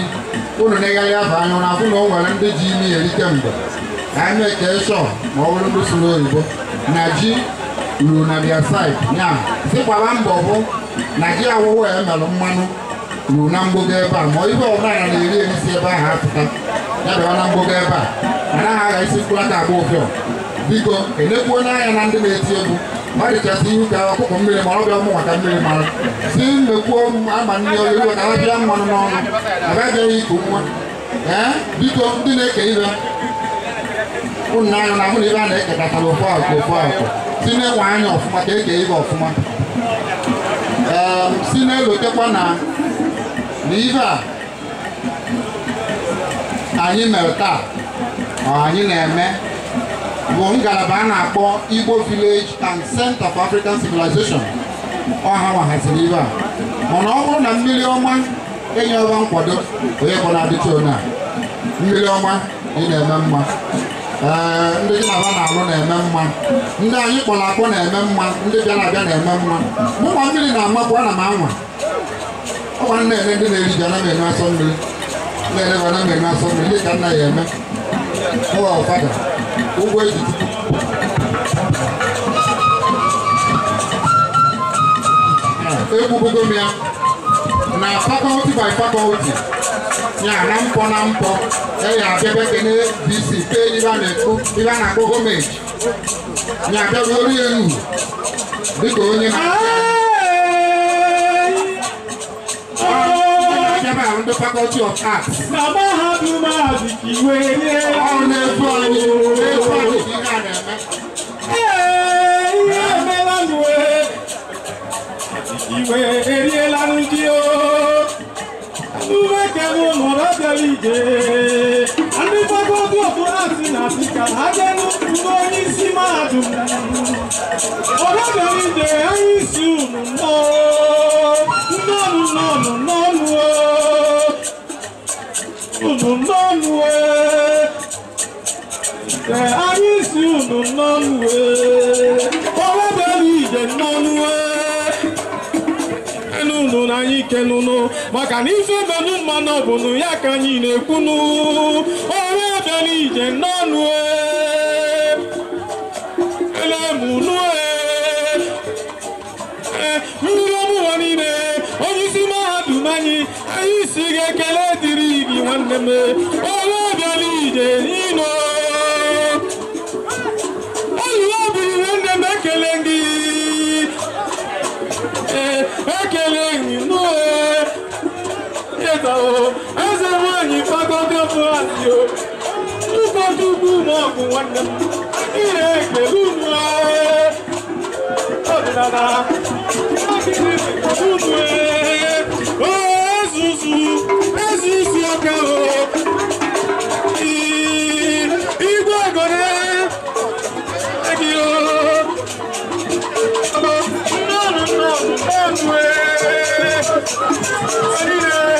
unu na-egharị aba anya na afụ na o nwere ndị ji imi eri kemgbe anyị na-eke shọ ma ọ bụrụ ndị sụrụ oyibo na ji ruru na dia said ya dịkwara mbọ bụ na ji awụwụ ya emelụ mmanụ ruru na mgbogo ebe a ma ibe ọbụla na na-eri erisi ebe ahụ apụta ya bịara na mgbogo ebe a anaghị agha isi mkpụrụ aka agba ụfịọ biko enekwu onye anya na ndị na-eti egwu marịchasị ihu ka ọkụkọ mmiri mara ọbịa ụmụ maka mmiri mara si mmekwuo ama nne oyiri ka ha bịa mmanụ n'ọnụ agagịghị iku nwa ee biko ndị na-eke ibe ụnụ anya na ahụ na ibe a na-ekekatara à, ofu akụ ofu akụ si na-enwe anya ọfụma ka eke ibe ọfụma ee si na-elotekwa na ibe a anyị mere taa anyị na-eme bụ ngalaba a na-akpọ Igbo Village and Center for African Civilization ọha wahaziri ibe a mana ọ bụrụ na mmiri ọma enye ọba nkwado onye bụ na-adịcha onye a mmiri ọma ị na-eme mma ee ndị gị na na-alụ na-eme mma ndị anyị kpọrọ akpọ na-eme mma ndị bịara abịa na-eme mma mụnwa mmiri na-amapụ ana m anwa ọgwa nna ele ndị na-eri ji ana m enye asọ mmiri na-eleba ana m enye asọ mmiri dị ka nna ya eme ụwa ụfada gbogbo èyí. egwu gogomia na fakọlti by fakọlti ya na mpọ na mpọ eyi abịaba kene bc pe ibe a na-akpọ gọọmenti ya abịaba orie enu dịka onye na never have the faculty of arts. Mama have you magic way. Oh, never funny, never funny. Hey, yeah, Melan way. Ìwé eré lánàá jí o, àdúgbò kẹ́mu mọ̀rọ̀ jẹ̀bi jẹ́. Àdúgbò tó tó tó àti nàìjíríà, àjẹnú ìwọ ní sí. ezelụnụ maka na ife menụ mmanụ ọbụnụ ya ka anyị na-ekwunu ọrụ ebele ije n'ọnụ e, elemụnụ e, e, mmiri ọmụwa niile onye isi mahadum anyị anyị si ga-ekele dịrị gị nwanne m ọrụ ebele ije n'ino yo Duka dubu mo ku wanda Ire ke lunwe Odinada Akiri ke lunwe Oh zuzu Ezuzu aka o Igwe gore Egi o Nnọrọ nnọrọ nnọrọ Nnọrọ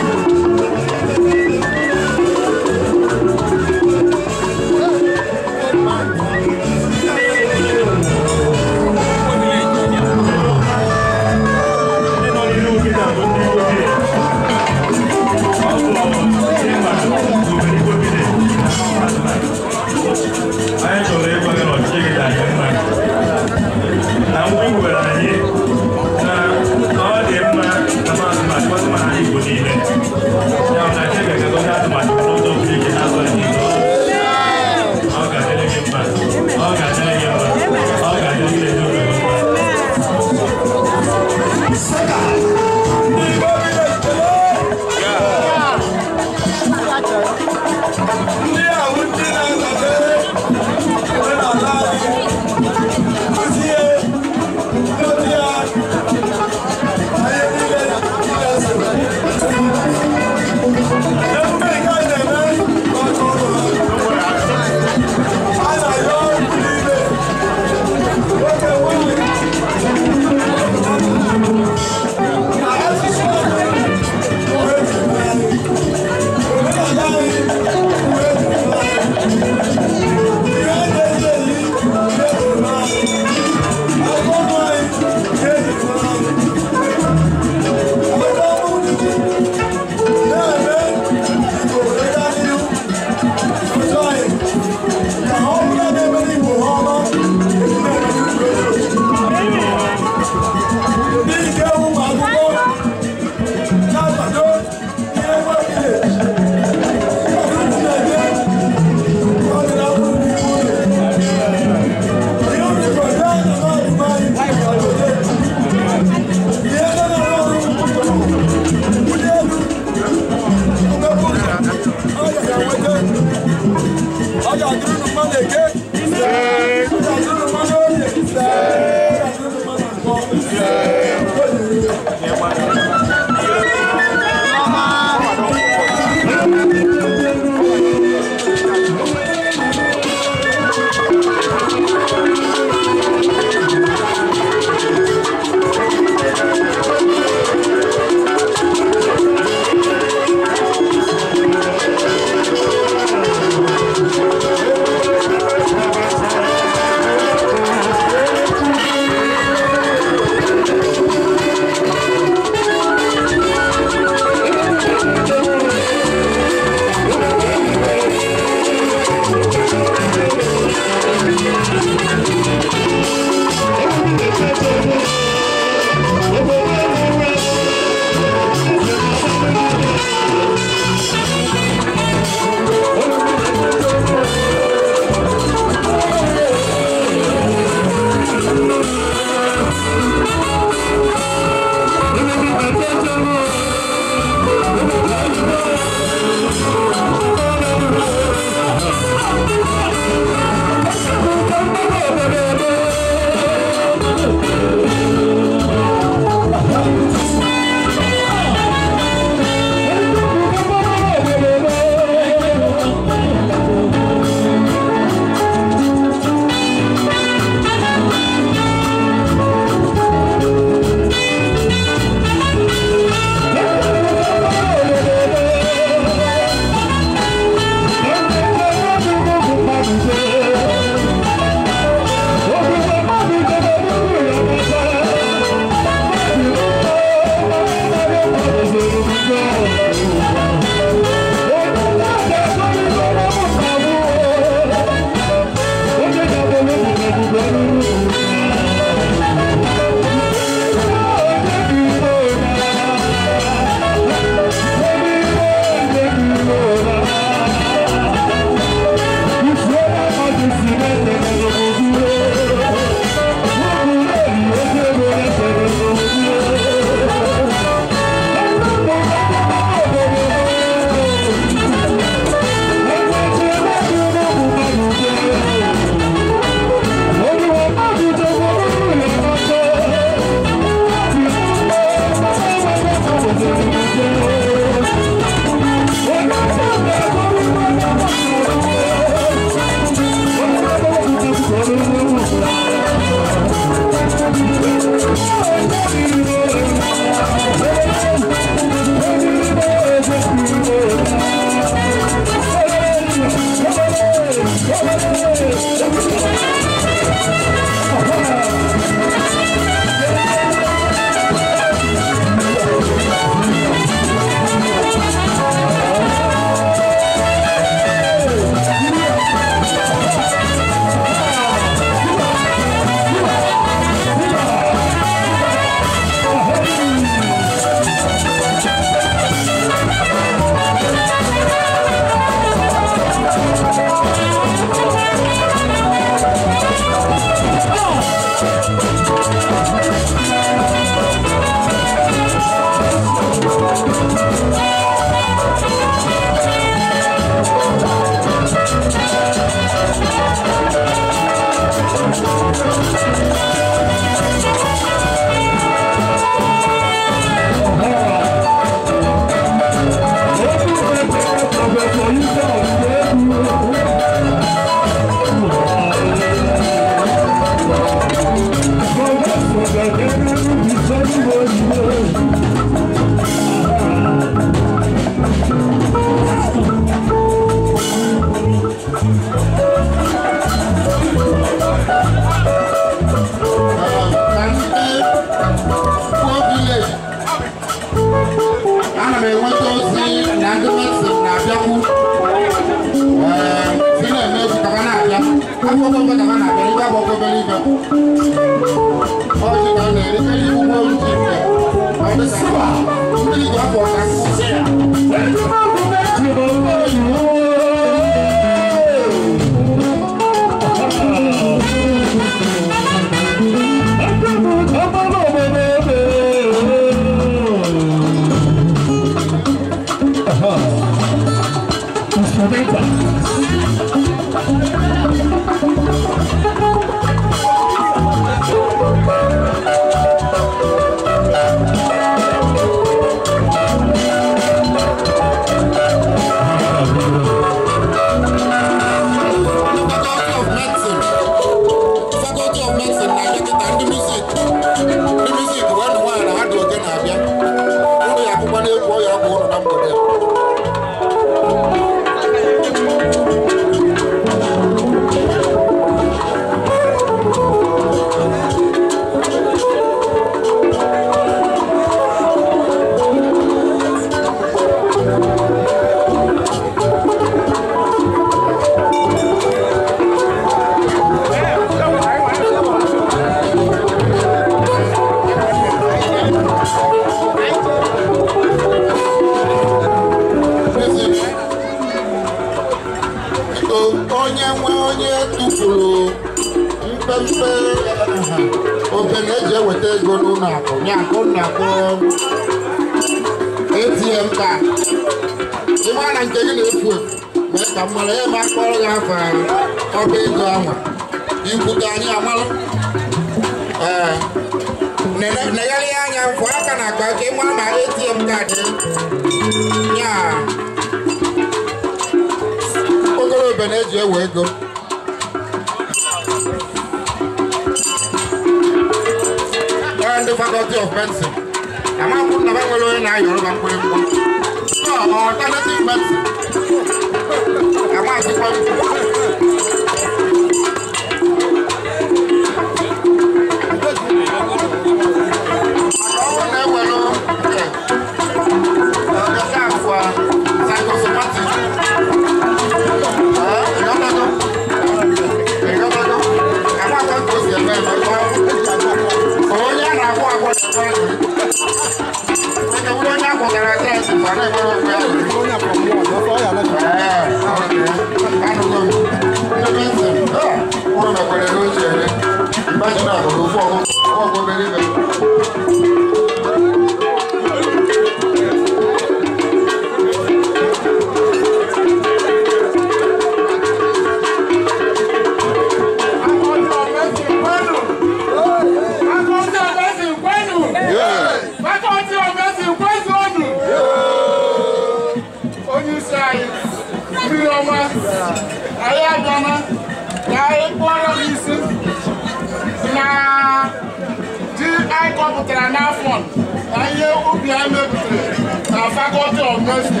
gosi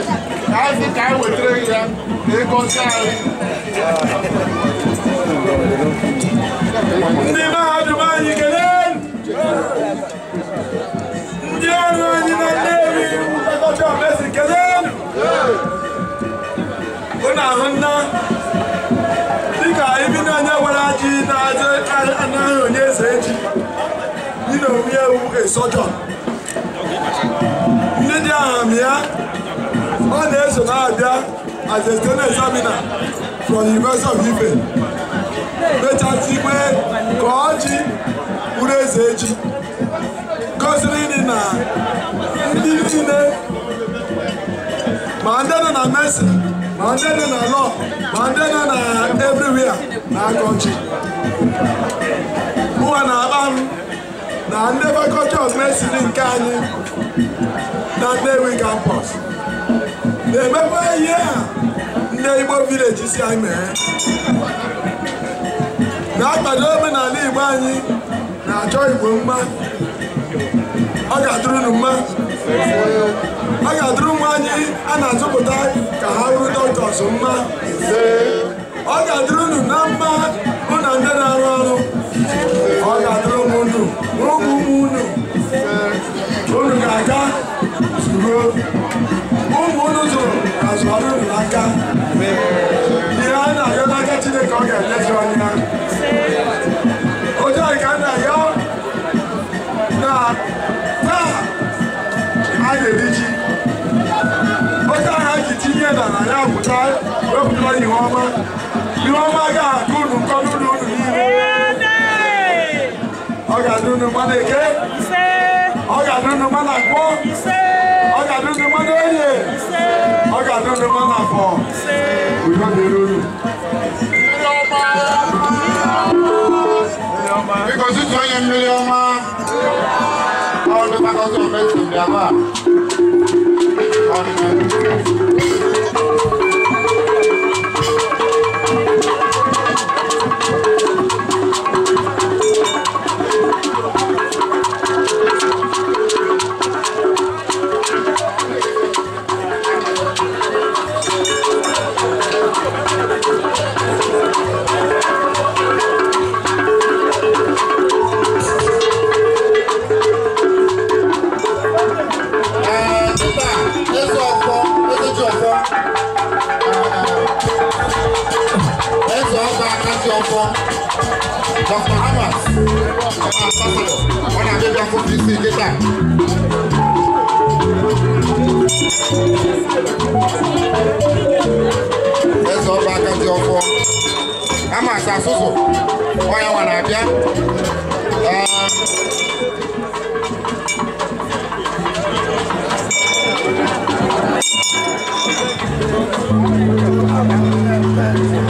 ka asị ka anyị wetara gị ya na ịgọzi anyị ndị mahadum anyị kele ndị ọrụ anyị na nnewi ụtọkọcha omesi kele ụ na-ahụ nna dịka ibi na onye gwara ji na-anaghị onye eze eji dị na omewu esọjọ ndị dị ahụ ya ọ na-eso na-abịa as a student examiner from the University of Ife mechasị ikpe ka ọ ji bụrụ eze echi gosiri dị na ndị niile ma ndị nọ na mesi ma ndị nọ na lọ ma ndị nọ na everywhere na akọchi mụwa na-akpa m na ndị fakọlti of mesin nke anyị na Nnewi campus na-emekwa ihe a ndị Igbo vileji si anyị mee na-akwado omenala Igbo anyị na-achọ Igbo mma ọ ga-adụrụ unu mma ọ ga-adụrụ nwa anyị a na-azụpụta ka ha bụrụ dọktọs mma ọ ga-adụrụ unu na mma na ndị na-arụ ọrụ ọ ga-adụrụ ụmụ ụmụ ụmụ unu unu ga-aga ụmụnụzụ azụrụ unu n'aka ihe a na-arịọ n'aka chineke ọ ga-enyezu anya otu anyị ka a na-arịọ na taa a na-eri ji otu anyị ji tinye na ya pụta wepụtara ihe ọma ihe ọma ga-akụ unu nkọ n'ụlọ unu niile ọ ga-adị unu mmadụ eke ọ̀gá dúdú mọ́nà gbọ́ ọ̀gá dúdú mọ́nà oyè ọ̀gá dúdú mọ́nà fọ́ òjò lè lórí. Because it's only a million man. All the battles of Mexico, they are àbá àbábàlọ̀ wọn ni abẹ́bí afọ́jú sí ìkéta. ẹsẹ̀ ọba akadì ọfọ ama asa soso Thank you.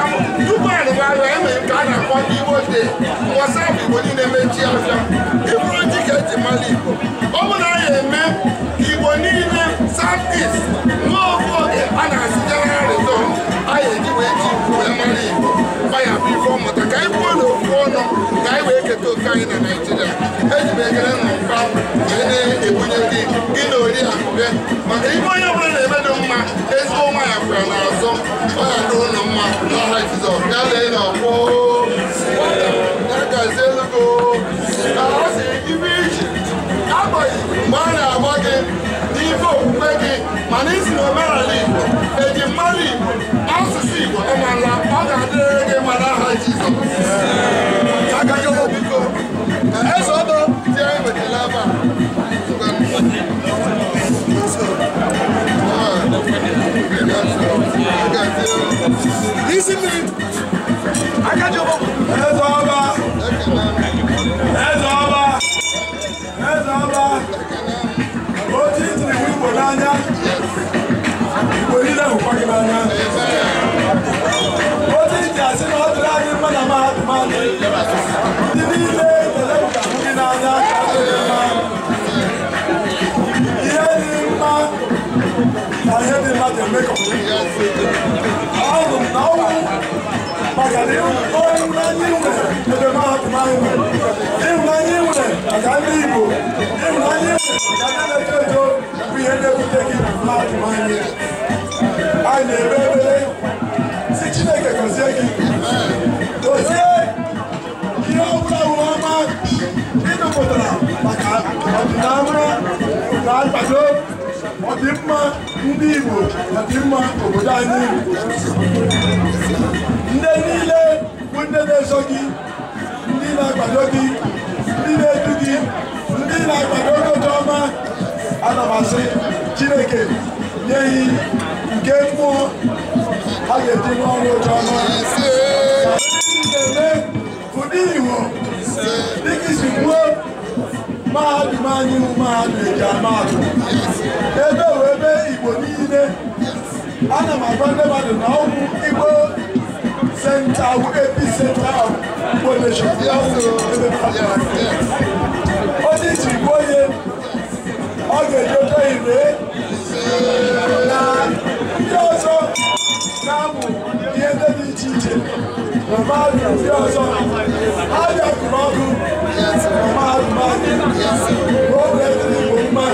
naijiria eji na na-ebunye gị gị na oriakụbe maka onye na-eme dị mma ezigbo nwa ya kwara n'azụ ọ ya dị ụlọ mma na iji na-agba gị n'ife okwukwe gị mana isi na omenala igbo eji mmanụ igbo discipline akájọba ẹ̀sọ́ ọba ẹ̀sọ́ ọba ẹ̀sọ́ ọba ó ti ń tìrì wípò n'anya ìwé nílẹ̀ òkọ́ kí n'anya ó ti ń jà sínú ọdún láyé mọ́nà máa dùn máa dùn ní nílé ìtẹ̀lẹ́ I help him out and make a I don't know. Pagarinho, olha o Brasil, né? Eu demoro mais um. Eu ganhei, né? A Galibo. Eu ganhei, né? A Galibo. We end up taking black money. I never believe. Se Chineke consegue. Você, que é o Brauma, e não botará. Mas a Dinamra, o Brasil, ọdị mma ndị Igbo ọdị mma obodo anyị ndị niile bụ ndị na-eso gị ndị na-akwado gị ndị na-edu gị ndị na-akwado ogote ọma ana m asị Chineke nye hi nke mmụọ ha ga-eji n'ọrụ oche ọma na-eme ụdị Igbo dịka isi kwuo mahadum anyị bụ mahadum eji amadụ ebe bụ ebe igbo niile ana m agwa ndị mmadụ na ọgwụ igbo senta bụ episenta igbo nation onye iji igbo onye ọ ga-ejodo ire na ndị ọzọ na-amụ ihe ndị dị iche iche Mọ̀máàdù tí ó sọ, Ájọ Kùmọ́dù, Mọ̀máàdù Máàdù, ó bẹ̀ sí ìwé mọ́,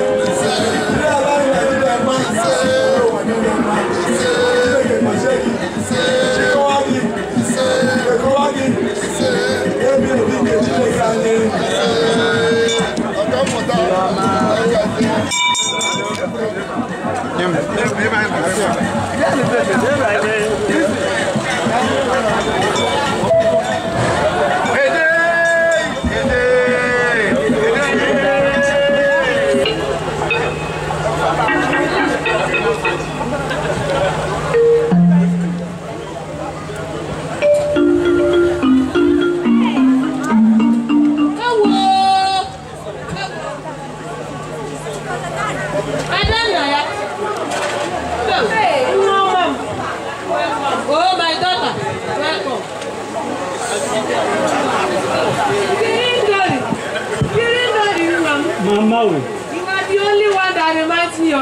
ilé aláìní ẹ̀dílẹ̀ mọ́, ó wà nílé mọ́, ilé ìgbìmọ̀ ṣe yìí, kó wá ní, kó wá ní, ebi ìdí kejì lè ga ní. Ọ̀gá mọ̀tá ọ̀gá ti. Yẹ́n mi, yẹ́n mi, yẹ́n mi, yẹ́n mi. Thank you.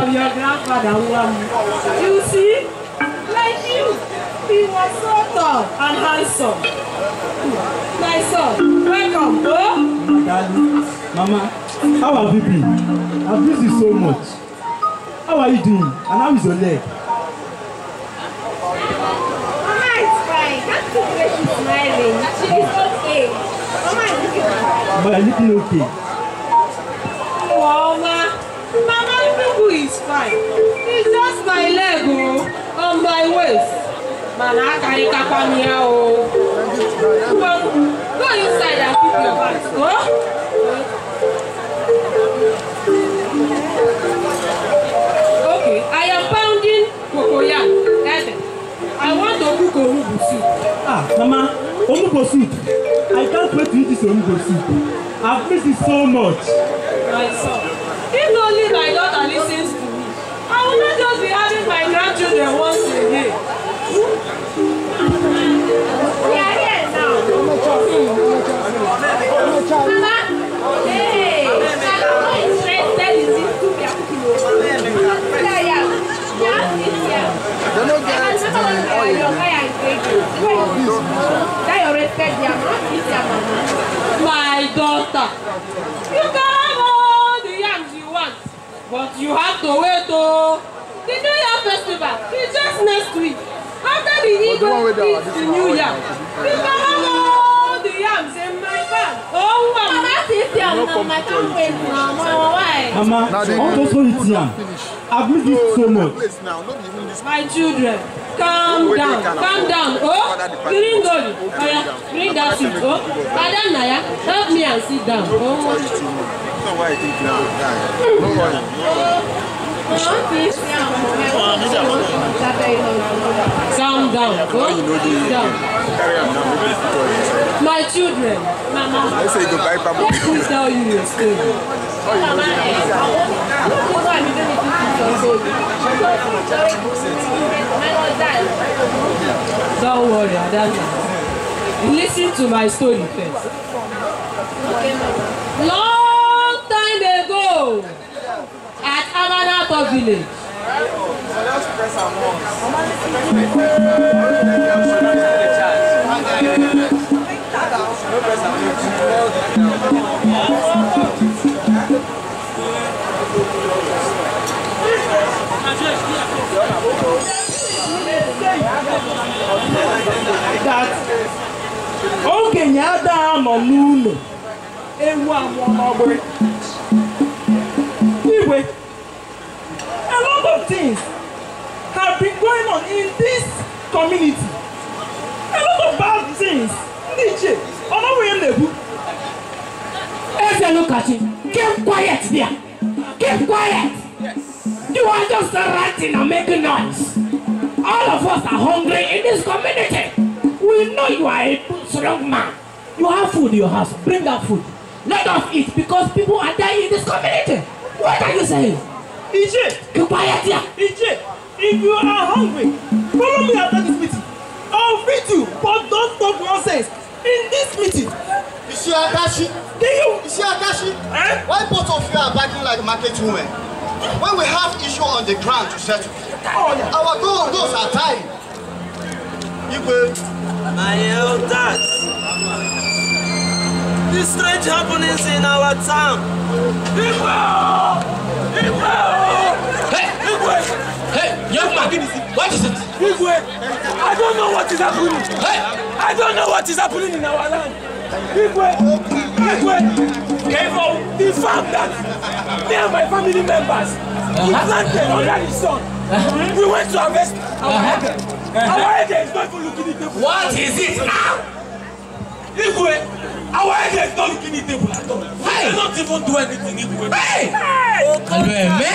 from your grandfather Nwamu. You see, like you, he was so tall and handsome. My son, welcome, oh. Daddy, Mama, how have you been? I've missed you so much. How are you doing? And how is your leg? Mama is fine. That's the way she's smiling. She is okay. Mama is looking fine. But you're looking okay. is fine. It's just my leg o oh. on my waist. Mana akarịkakwa m here, o. Go inside and keep your back. Go. Oh. Okay, I am pounding cocoyam. I want to cook onugbu soup. Ah, Mama, onugbu soup. I can't wait to eat this onugbu soup. I've missed it so much. My son, if only my will just be having my grandchildren once again. We are here now. Mama, hey, I'm not interested in this soup you are cooking over. Yeah, yeah. Just this here. Don't know get oil. Your fire is great. That your respect, they are not eating. My daughter. You guys. But you have to wait oh. The New Year festival is just next week. After the eagle eats the New Year, we can have all the yams in my bag. Oh, oh wow. Mama, this yam now, I can't wait now. Mama, why? Mama, how does one eat yam? I've missed it so much. My children, calm down, calm down. Oh, green gold. Bring that seat. Oh, Adanaya, help me and sit down. Oh, know why I think you would die. No worry. Sound down. you know the, down. My children. Let's say goodbye, Papa. Let me tell you a story. Don't worry, Adana. Listen to my story first. Lord at Amalabo village. That okenye adịghị anọ n'ụlọ ewu anwụọ n'ọgbịrị anyway, a lot of things have been going on in this community. A lot of bad things. Niche, Honorable Nebu. Ezra, look at him. Keep quiet there. Keep quiet. Yes. You are just ranting and making noise. All of us are hungry in this community. We know you are a strong man. You have food in your house. Bring that food. Let us eat because people are dying in this community. What are you saying? EJ! Be quiet here! EJ! If you are hungry, follow me after this meeting. I'll feed you, but don't talk nonsense in this meeting. Iṣẹ́ Adashi. Do you? Iṣẹ́ Adashi. Eh? Why both of you are backing like market women? When we have issue on the ground to settle, oh, yeah. our goal, goals are You Igwe. My old elders these strange happenings in our town. Igwe! Igwe! Hey! Igwe! Hey, young man, what is it? Igwe, I don't know what is happening. Hey! I don't know what is happening in our land. Igwe! Igwe! Careful! The farm that me and my family members uh-huh. planted under the sun. Uh-huh. We went to harvest our uh-huh. head. Uh-huh. Our head is not even looking at the What is it now? Ah! Igwe! Our head is not looking eatable at all. Hey. They don't even do anything eatable. Hey! Oh, Hello, Eme.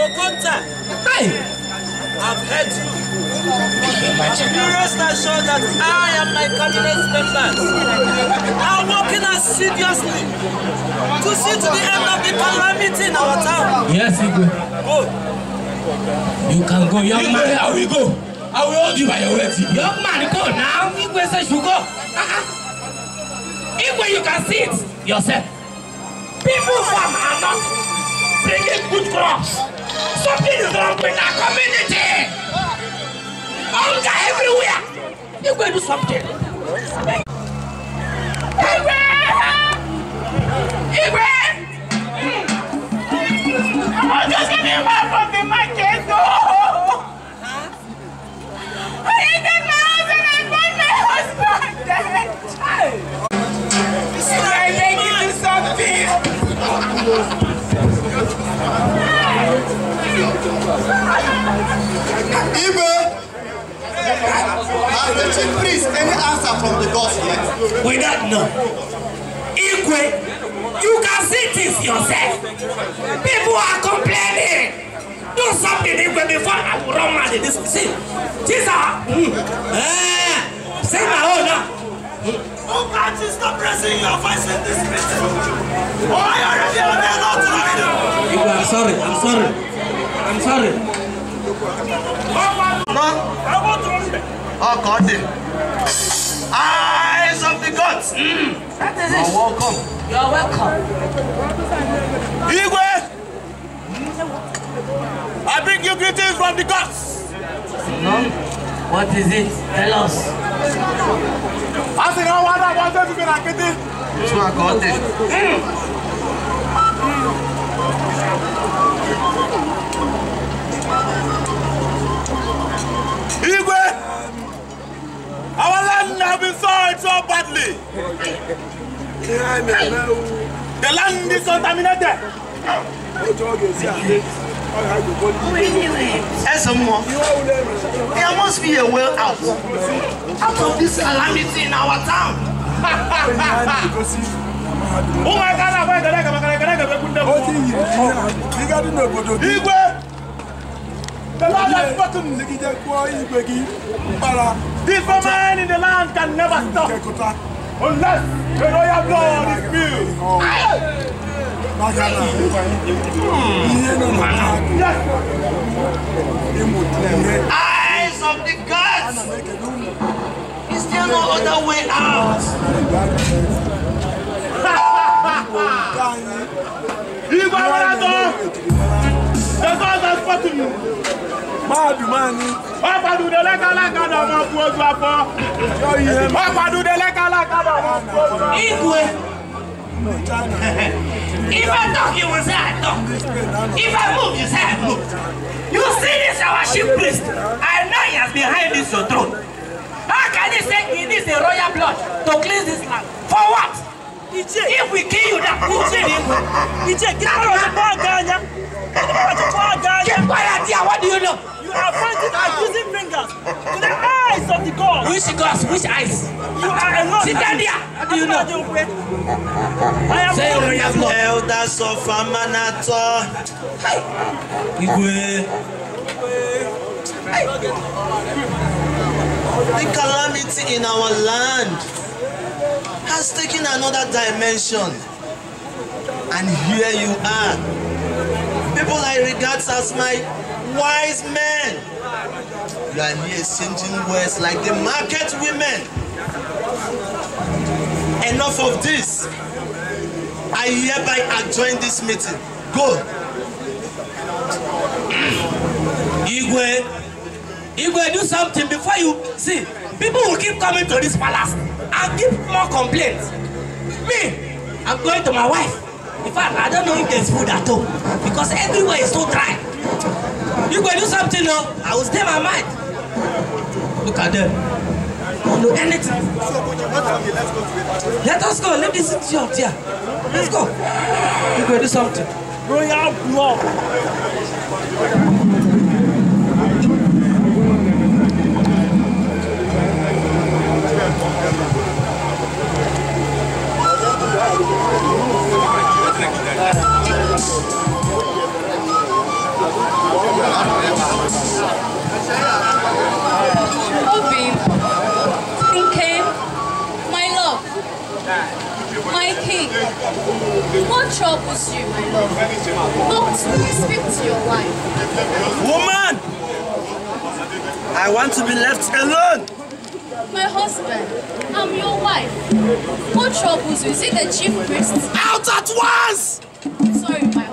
Okonta. Oh, hey! I've heard you. You rest assured that I and my cabinet members are working assiduously to see to the end of the calamity in our town. Yes, Igwe. Go. You can go, young man. I will go. I will hold you by your wet. Young man, go now. Igwe says you go. Uh -uh. Even you can see it yourself. People farm are not bringing good crops. Something is wrong with our community. Hunger everywhere. You go do something. Igwe! Igwe! I'm just getting one from the market. No! I need the house and I my husband. Ibe, has uh, the chief priest any answer from the gods yet? We don't know. Ikwe, you can see this yourself. People are complaining. Do something Igwe before I will run mad in this. See, these Mm, eh, say my own now. Oh God, you stop raising your voice in this meeting. Oh, I already have a lot to read. I'm sorry, I'm sorry. I'm sorry. Oh God. Eh. Eyes of the gods. Mm. That is it. You're welcome. You're welcome. Igwe. I bring you greetings from the gods. No. What is it? Tell us. I said, I want that one time to be like this. This one got it. Igwe, our land has been soiled so badly. The land is contaminated. Yes, There must be a way out out of this calamity in our town. Igwe! The Lord has spoken. The former in the land can never stop unless the royal blood is spilled. Eyes of the gods! Is there no other way out? Igwe Warago! fọ́tùnù. Máàdù máa ní. Wọ́n padùdé lẹ́kàlákà náà ọmọ fún ojú afọ. Wọ́n padùdé lẹ́kàlákà náà ọmọ fún ojú afọ. Igwe. If I talk, you will say I talk. If I move, you say move. You see this our chief priest. I know he has behind this your throne. How can he say he needs a royal blood to cleanse this land? For what? If we kill you, that will be Igwe. Igwe, get out of the bag, Ganya. Keep quiet here. What do you know? You are pointing accusing fingers to the eyes of the gods. Which gods? Which eyes? You are alone. Sit ah, down there. What do you know? I am Say you have not. Elders of Amanato. Igwe. The calamity in our land has taken another dimension. And here you are people I regard as my wise men. You are here exchanging words like the market women. Enough of this. I hereby adjourn this meeting. Go. Igwe, Igwe, do something before you see. People will keep coming to this palace and give more complaints. Me, I'm going to my wife. In fact, I don't know if there's food at all because everywhere is so dry. You go do something no? Oh, I will stay my mind. Look at them. Don't know anything. Let us go. Let this idiot here. Let's go. You go do something. Royal blood. Thank you. Moving. In came my love, my king. What troubles you, my love? Not to speak to your wife. Woman! I want to be left alone! My husband, I'm your wife. What troubles you? Is it the chief priest? Out at once! Sorry, my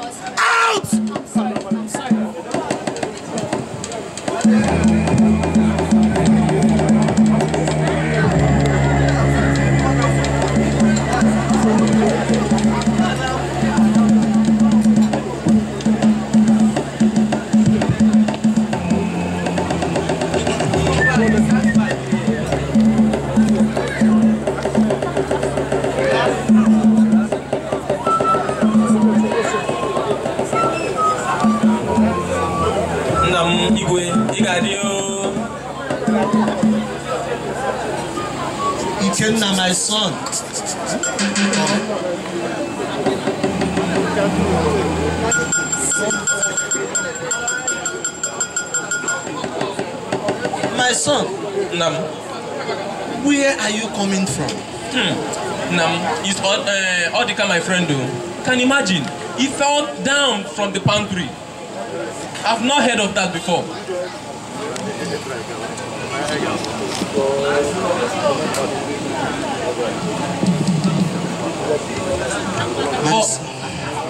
na my son. My son. Nam. Where are you coming from? Hmm. Nam, it's all, uh, the my friend do. Can you imagine? He fell down from the pantry. I've not heard of that before. Thank you. But,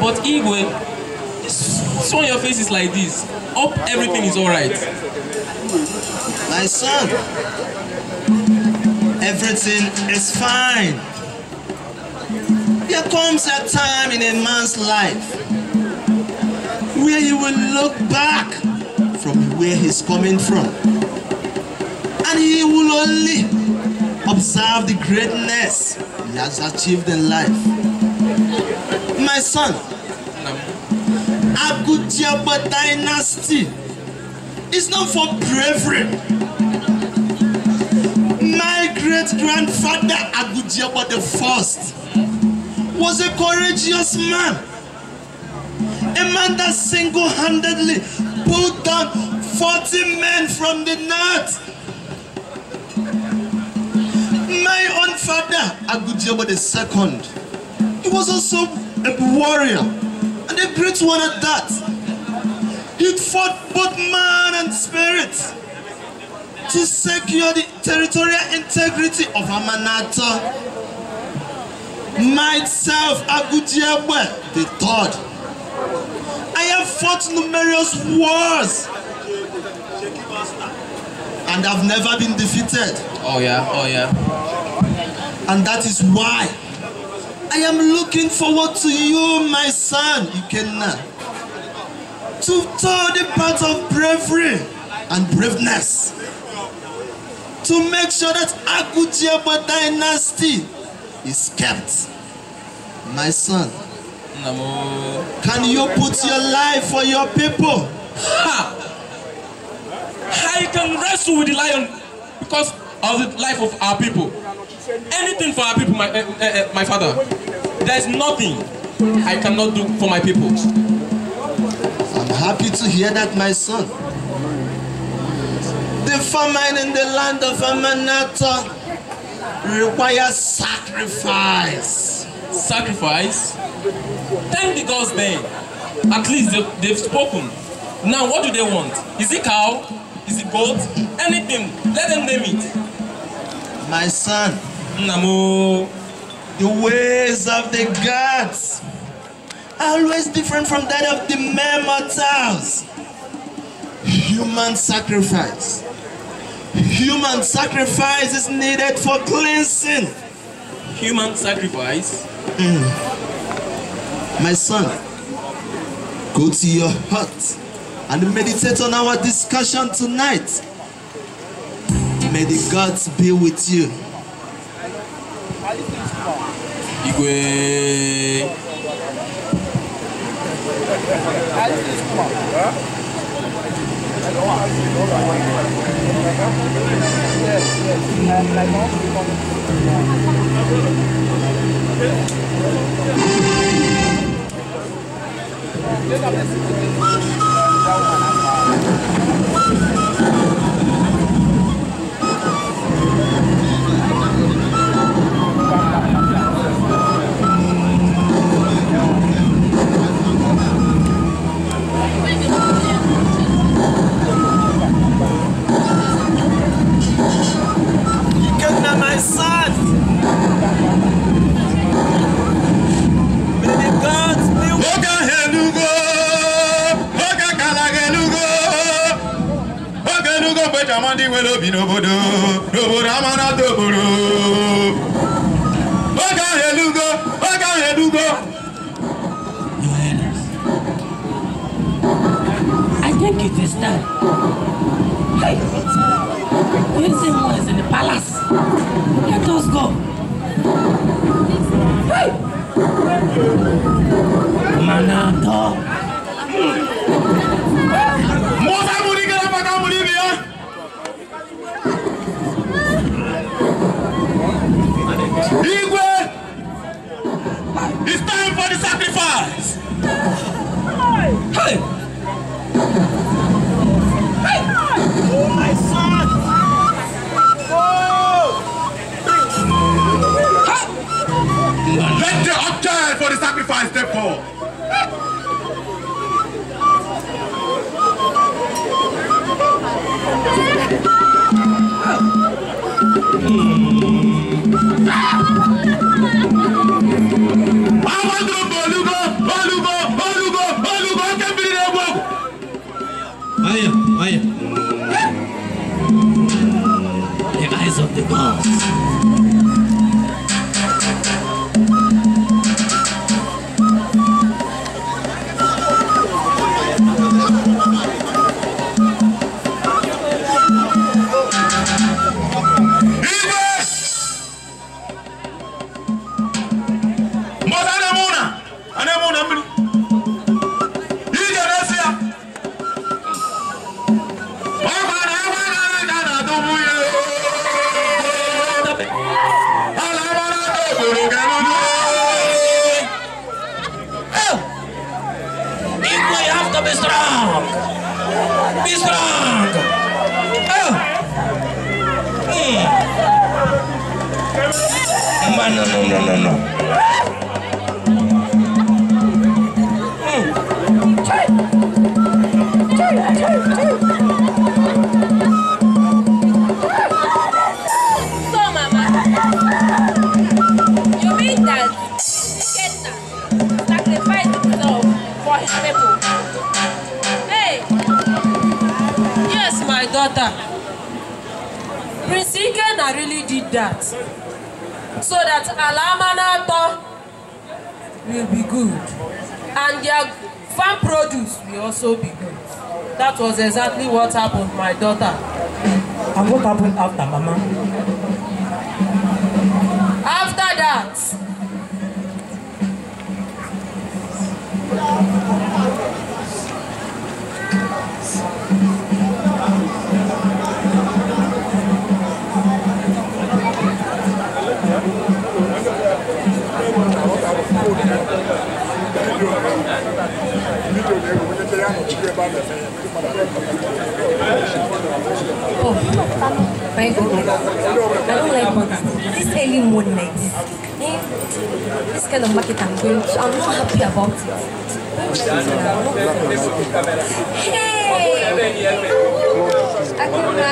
but Igwe, so your face is like this. Oh, everything is alright. My son, everything is fine. There comes a time in a man's life where he will look back from where he's coming from. And he will only Observe the greatness he has achieved in life. My son, Agutiaba dynasty is not for bravery. My great-grandfather Agutiaba the first was a courageous man. A man that single-handedly pulled down 40 men from the north my own Father Agujaba II. He was also a warrior and a great one at that. He fought both man and spirit to secure the territorial integrity of Amanata. Myself, the III. I have fought numerous wars and I've never been defeated. Oh yeah, oh yeah. And that is why I am looking forward to you, my son, Ikenna, to tow the path of bravery and braveness, to make sure that Akutiaba dynasty is kept. My son, can you put your life for your people? Ha! I can wrestle with the lion because of the life of our people. Anything for our people, my, uh, uh, my father. There is nothing I cannot do for my people. I'm happy to hear that, my son. The famine in the land of Amanata requires sacrifice. Sacrifice? Thank the gods then. At least they've, they've spoken. Now, what do they want? Is it cow? Is it gold? Anything. Let them name it. My son. Namo. The ways of the gods are always different from that of the mere mortals. Human sacrifice. Human sacrifice is needed for cleansing. Human sacrifice? Mm. My son, go to your hut and meditate on our discussion tonight. May the gods be with you. Igwe. Yes, yes. Thank you. nwere obi n'obodo n'obodo amanata obodo I think it is time. Hey, Wilson is in the palace. Let us go. Hey! I step forward. Hmm. did that so that Alamanato will be good and their farm produce will also be good. That was exactly what happened my daughter. And what happened after, Mama? my goodness. I don't like politics. This early morning this. Eh? This kind of market I'm going to, I'm not happy about it. Hey! Akuma,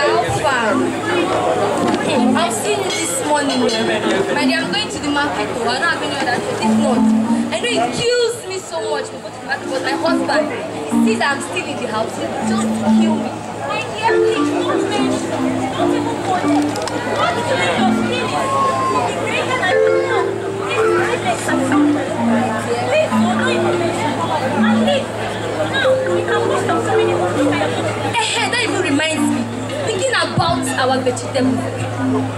I've seen you this morning. My I'm going to the market though. I don't have any other thing. If not, I know it kills me so much to go to the market, but my husband, he sees I'm still in the house. He not kill me our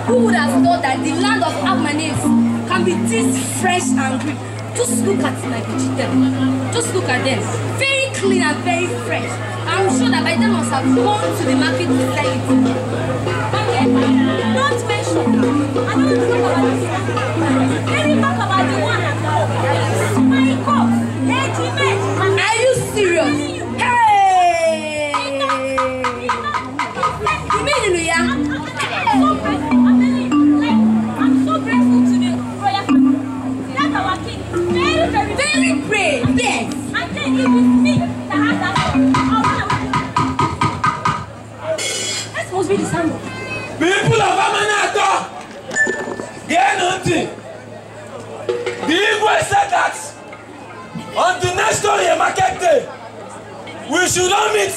Who would have thought that the land of Abmanes can be this fresh and green? Just look at my vegetables. Just look at them. Very clean and very fresh. I'm sure that by then must have gone to the market to sell it. Not mention. I don't want about this. Let me about the one at home. My cup. Are you serious? should not meet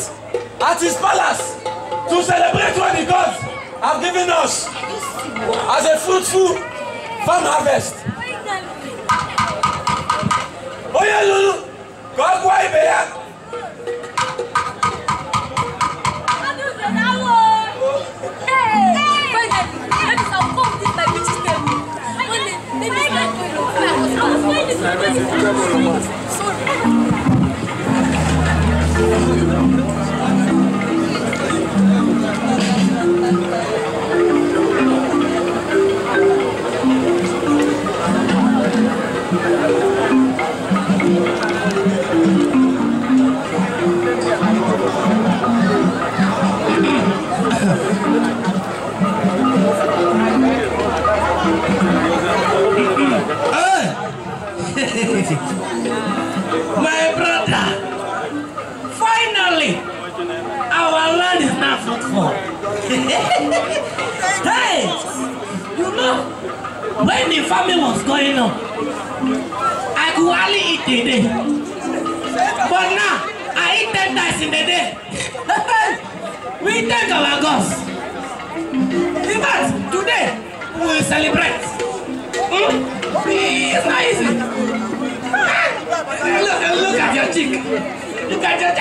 at his palace to celebrate what the gods have given us as a fruitful farm harvest. onye lụrụ ka ọ when the famine was going on i could hardly eat a day but now i eat ten times in a day we thank our gods in fact today we will celebrate hmm? it's not easy look look at your cheek look at your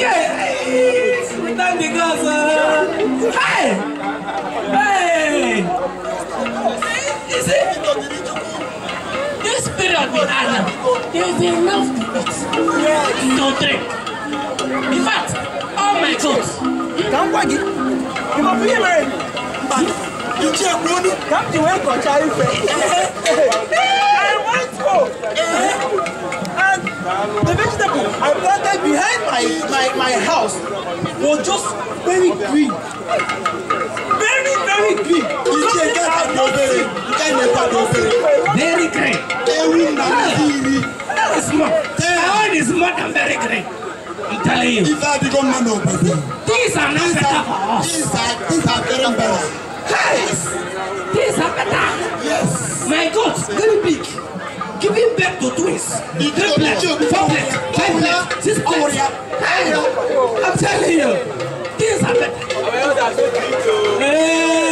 cheek we thank the gods uh, hey. spirit of his island. There is enough to eat, to drink. In fact, all oh my goods. Kamkwagi, you must be you Ichi money. come to where Kocha Ife. Eh, eh, eh. I want to. And the vegetable I planted behind my, my, my house was just very green. Very green. Ewu na ndị iri. That is more. That is more very green. I'm telling you. These are not better for us. These are, these are very better. Hey! These are better. Yes. My God, very big. Giving back to twins. Triplet, doublet, doublet, sixplet. Hey! I'm telling you. These are better. Hey!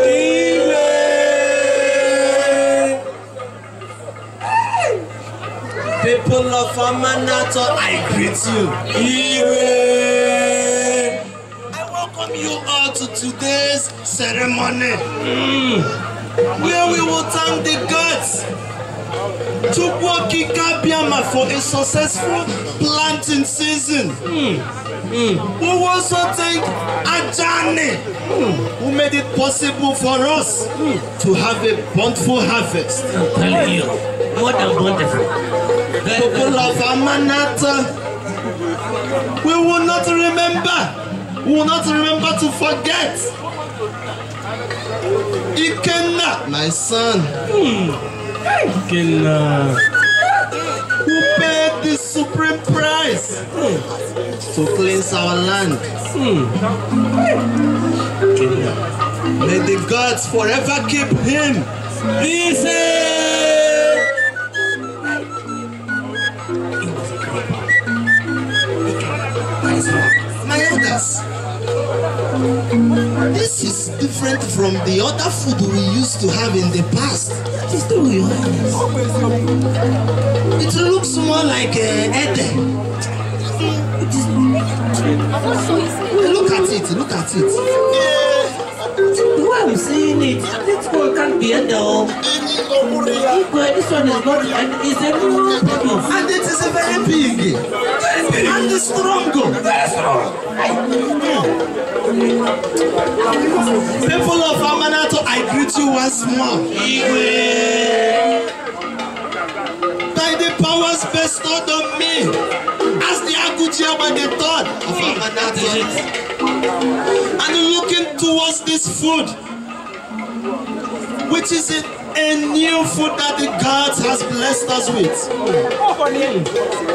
people of Amanato, I greet you. Ire! I welcome you all to today's ceremony, mm. where we will thank the gods Chukwuoki Kabiama for a successful planting season. Mm. Mm. We also thank Ajani mm. who made it possible for us mm. to have a bountiful harvest. I'm telling you, more than bountiful. people of Amanat, we will not remember, we will not remember to forget. Ikenna, my son. Hmm. Ikenna. Who paid the supreme price hmm. to cleanse our land? Hmm. May the gods forever keep him. Peace! class. This is different from the other food we used to have in the past. It looks more like uh, Ede. Look at it, look at it. Why are am seeing it? This one can't be a dog. This one is not, and it's a new problem. And it is a very big. Very big. And strong. Very strong. People of Amanato, I greet you once more. was bestowed on me as the Agutia by the third of Amanati. And looking towards this food, which is it a new food that the God has blessed us with.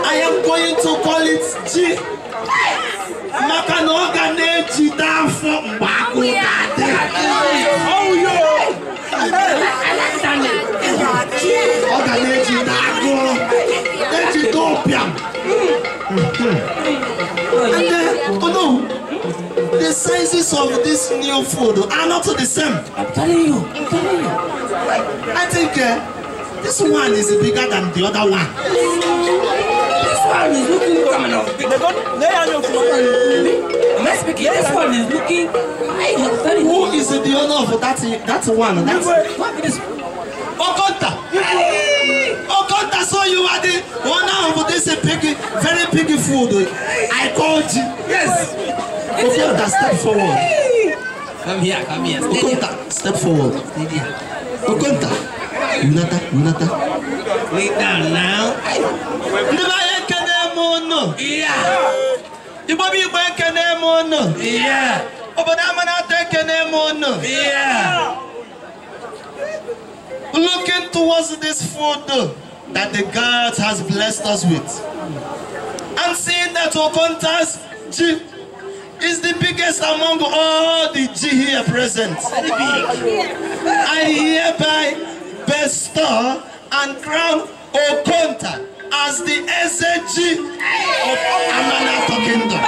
I am going to call it G. Maka na ọ ga na-eji taa afọ mgbe ọ ga na-eji na agụọ eji tọpịam and then oh no the sizes of this new food are not the same i'm telling you i'm telling you i think uh, this one is bigger than the other one this one is looking coming off they don't they are not Let's begin. This one is looking. Who is the owner of that that one? That's what Okonta. Okonta, so you are the owner of this piggy, very piggy food. I called you. Yes. Okonta, step forward. Come here, come here. Okonta, step forward. here. Okonta, Unata, Unata. Lay down now. Never heard of them, no. Yeah. Igbo Igbo ekene m unu obodo Amanatọ ekene m unu looking towards this food that the God has blessed us with and seeing that Okonta's G is the biggest among all the G here present. I hereby bestow and crown Okonta as the SAG of Amana Kingdom.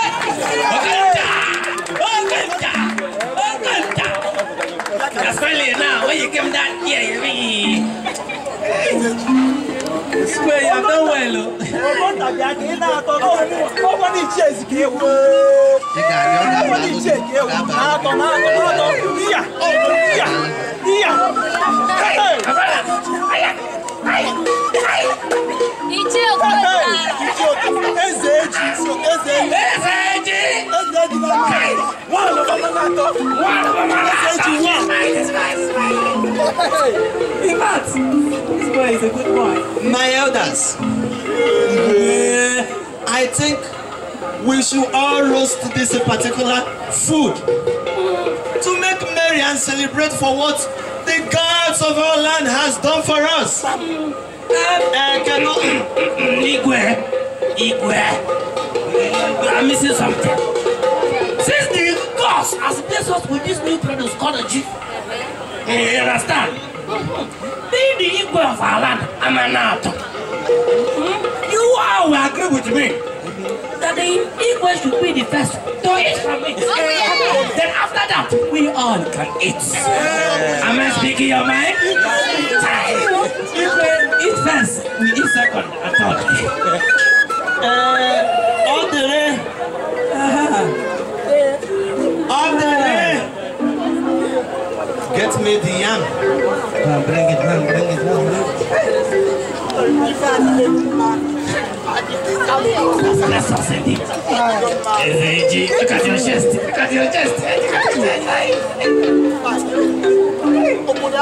That's funny now, when you came down here, you mean. Square, you don't well. Nobody chase give Nobody chase give Oh, yeah. Yeah. Hey, Ichie Okocha. Ichie Okocha. Eze Eji. Eze Eji. Eze Eji. Eze Eji na mma. One over mama to. One over mama to. Eze Eji one. Smile, smile, smile. In fact, this boy is a good boy. My elders. Yeah. I think we should all roast this particular food to make merry and celebrate for what the gods of our land has done for us. ẹ eh, kẹ́nu igwe igwe I'm missing something. Since the gods has blessed us with this new produce called a G, eh, you understand? Being the igwe of our land, I'm an out. Hmm? You all will agree with me. that the Igbo should be the first to eat from it. Oh, yeah. Then after that, we all can eat. Yeah. Am I speaking your mind? If we eat first, we eat second and third. uh, uh-huh. uh-huh. Get me the yam. bring it, man, bring it, man. Nessa sede. Evade. Cadê o gesto? Cadê o gesto? I was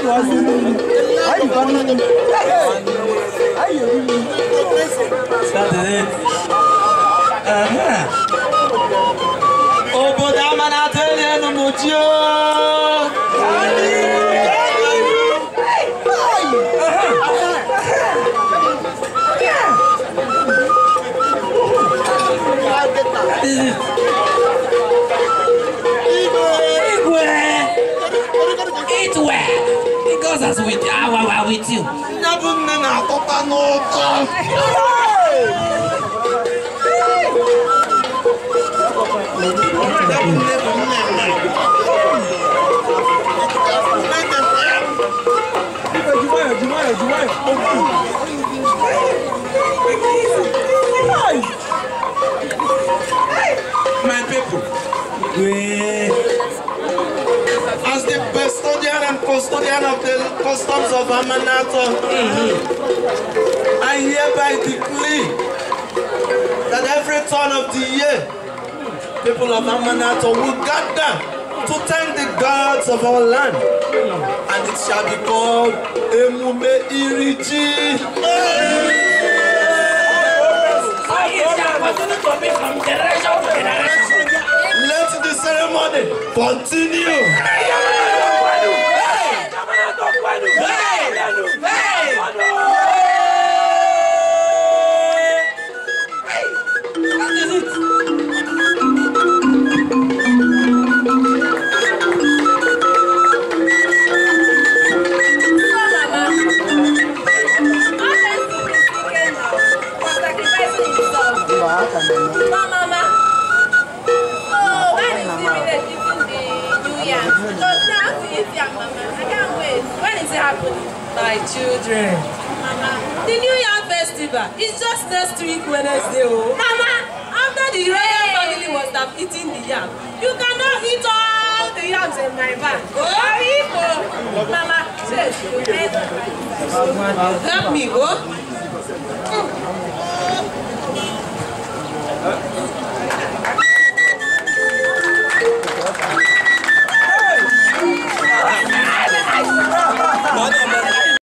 Ai, was I was That's it. Uh-huh. o but I'm é no you. Eat well. It goes as with our uh, with you. Never men are copa no Demais, Oui. As the custodian and custodian of the customs of Amanata, I hereby decree that every turn of the year, people of Amanata will gather to thank the gods of our land, and it shall be called Emume Iriji. Hey! Oh, yes, continue to be from generation to generation ceremony continue. My children. Mama, the New Yam festival is just next week Wednesday. Oh. Mama, after the royal family was done eating the yam, you cannot eat all the yams in my bag. Oh, Ibo. Mama, help me, oh. Mm.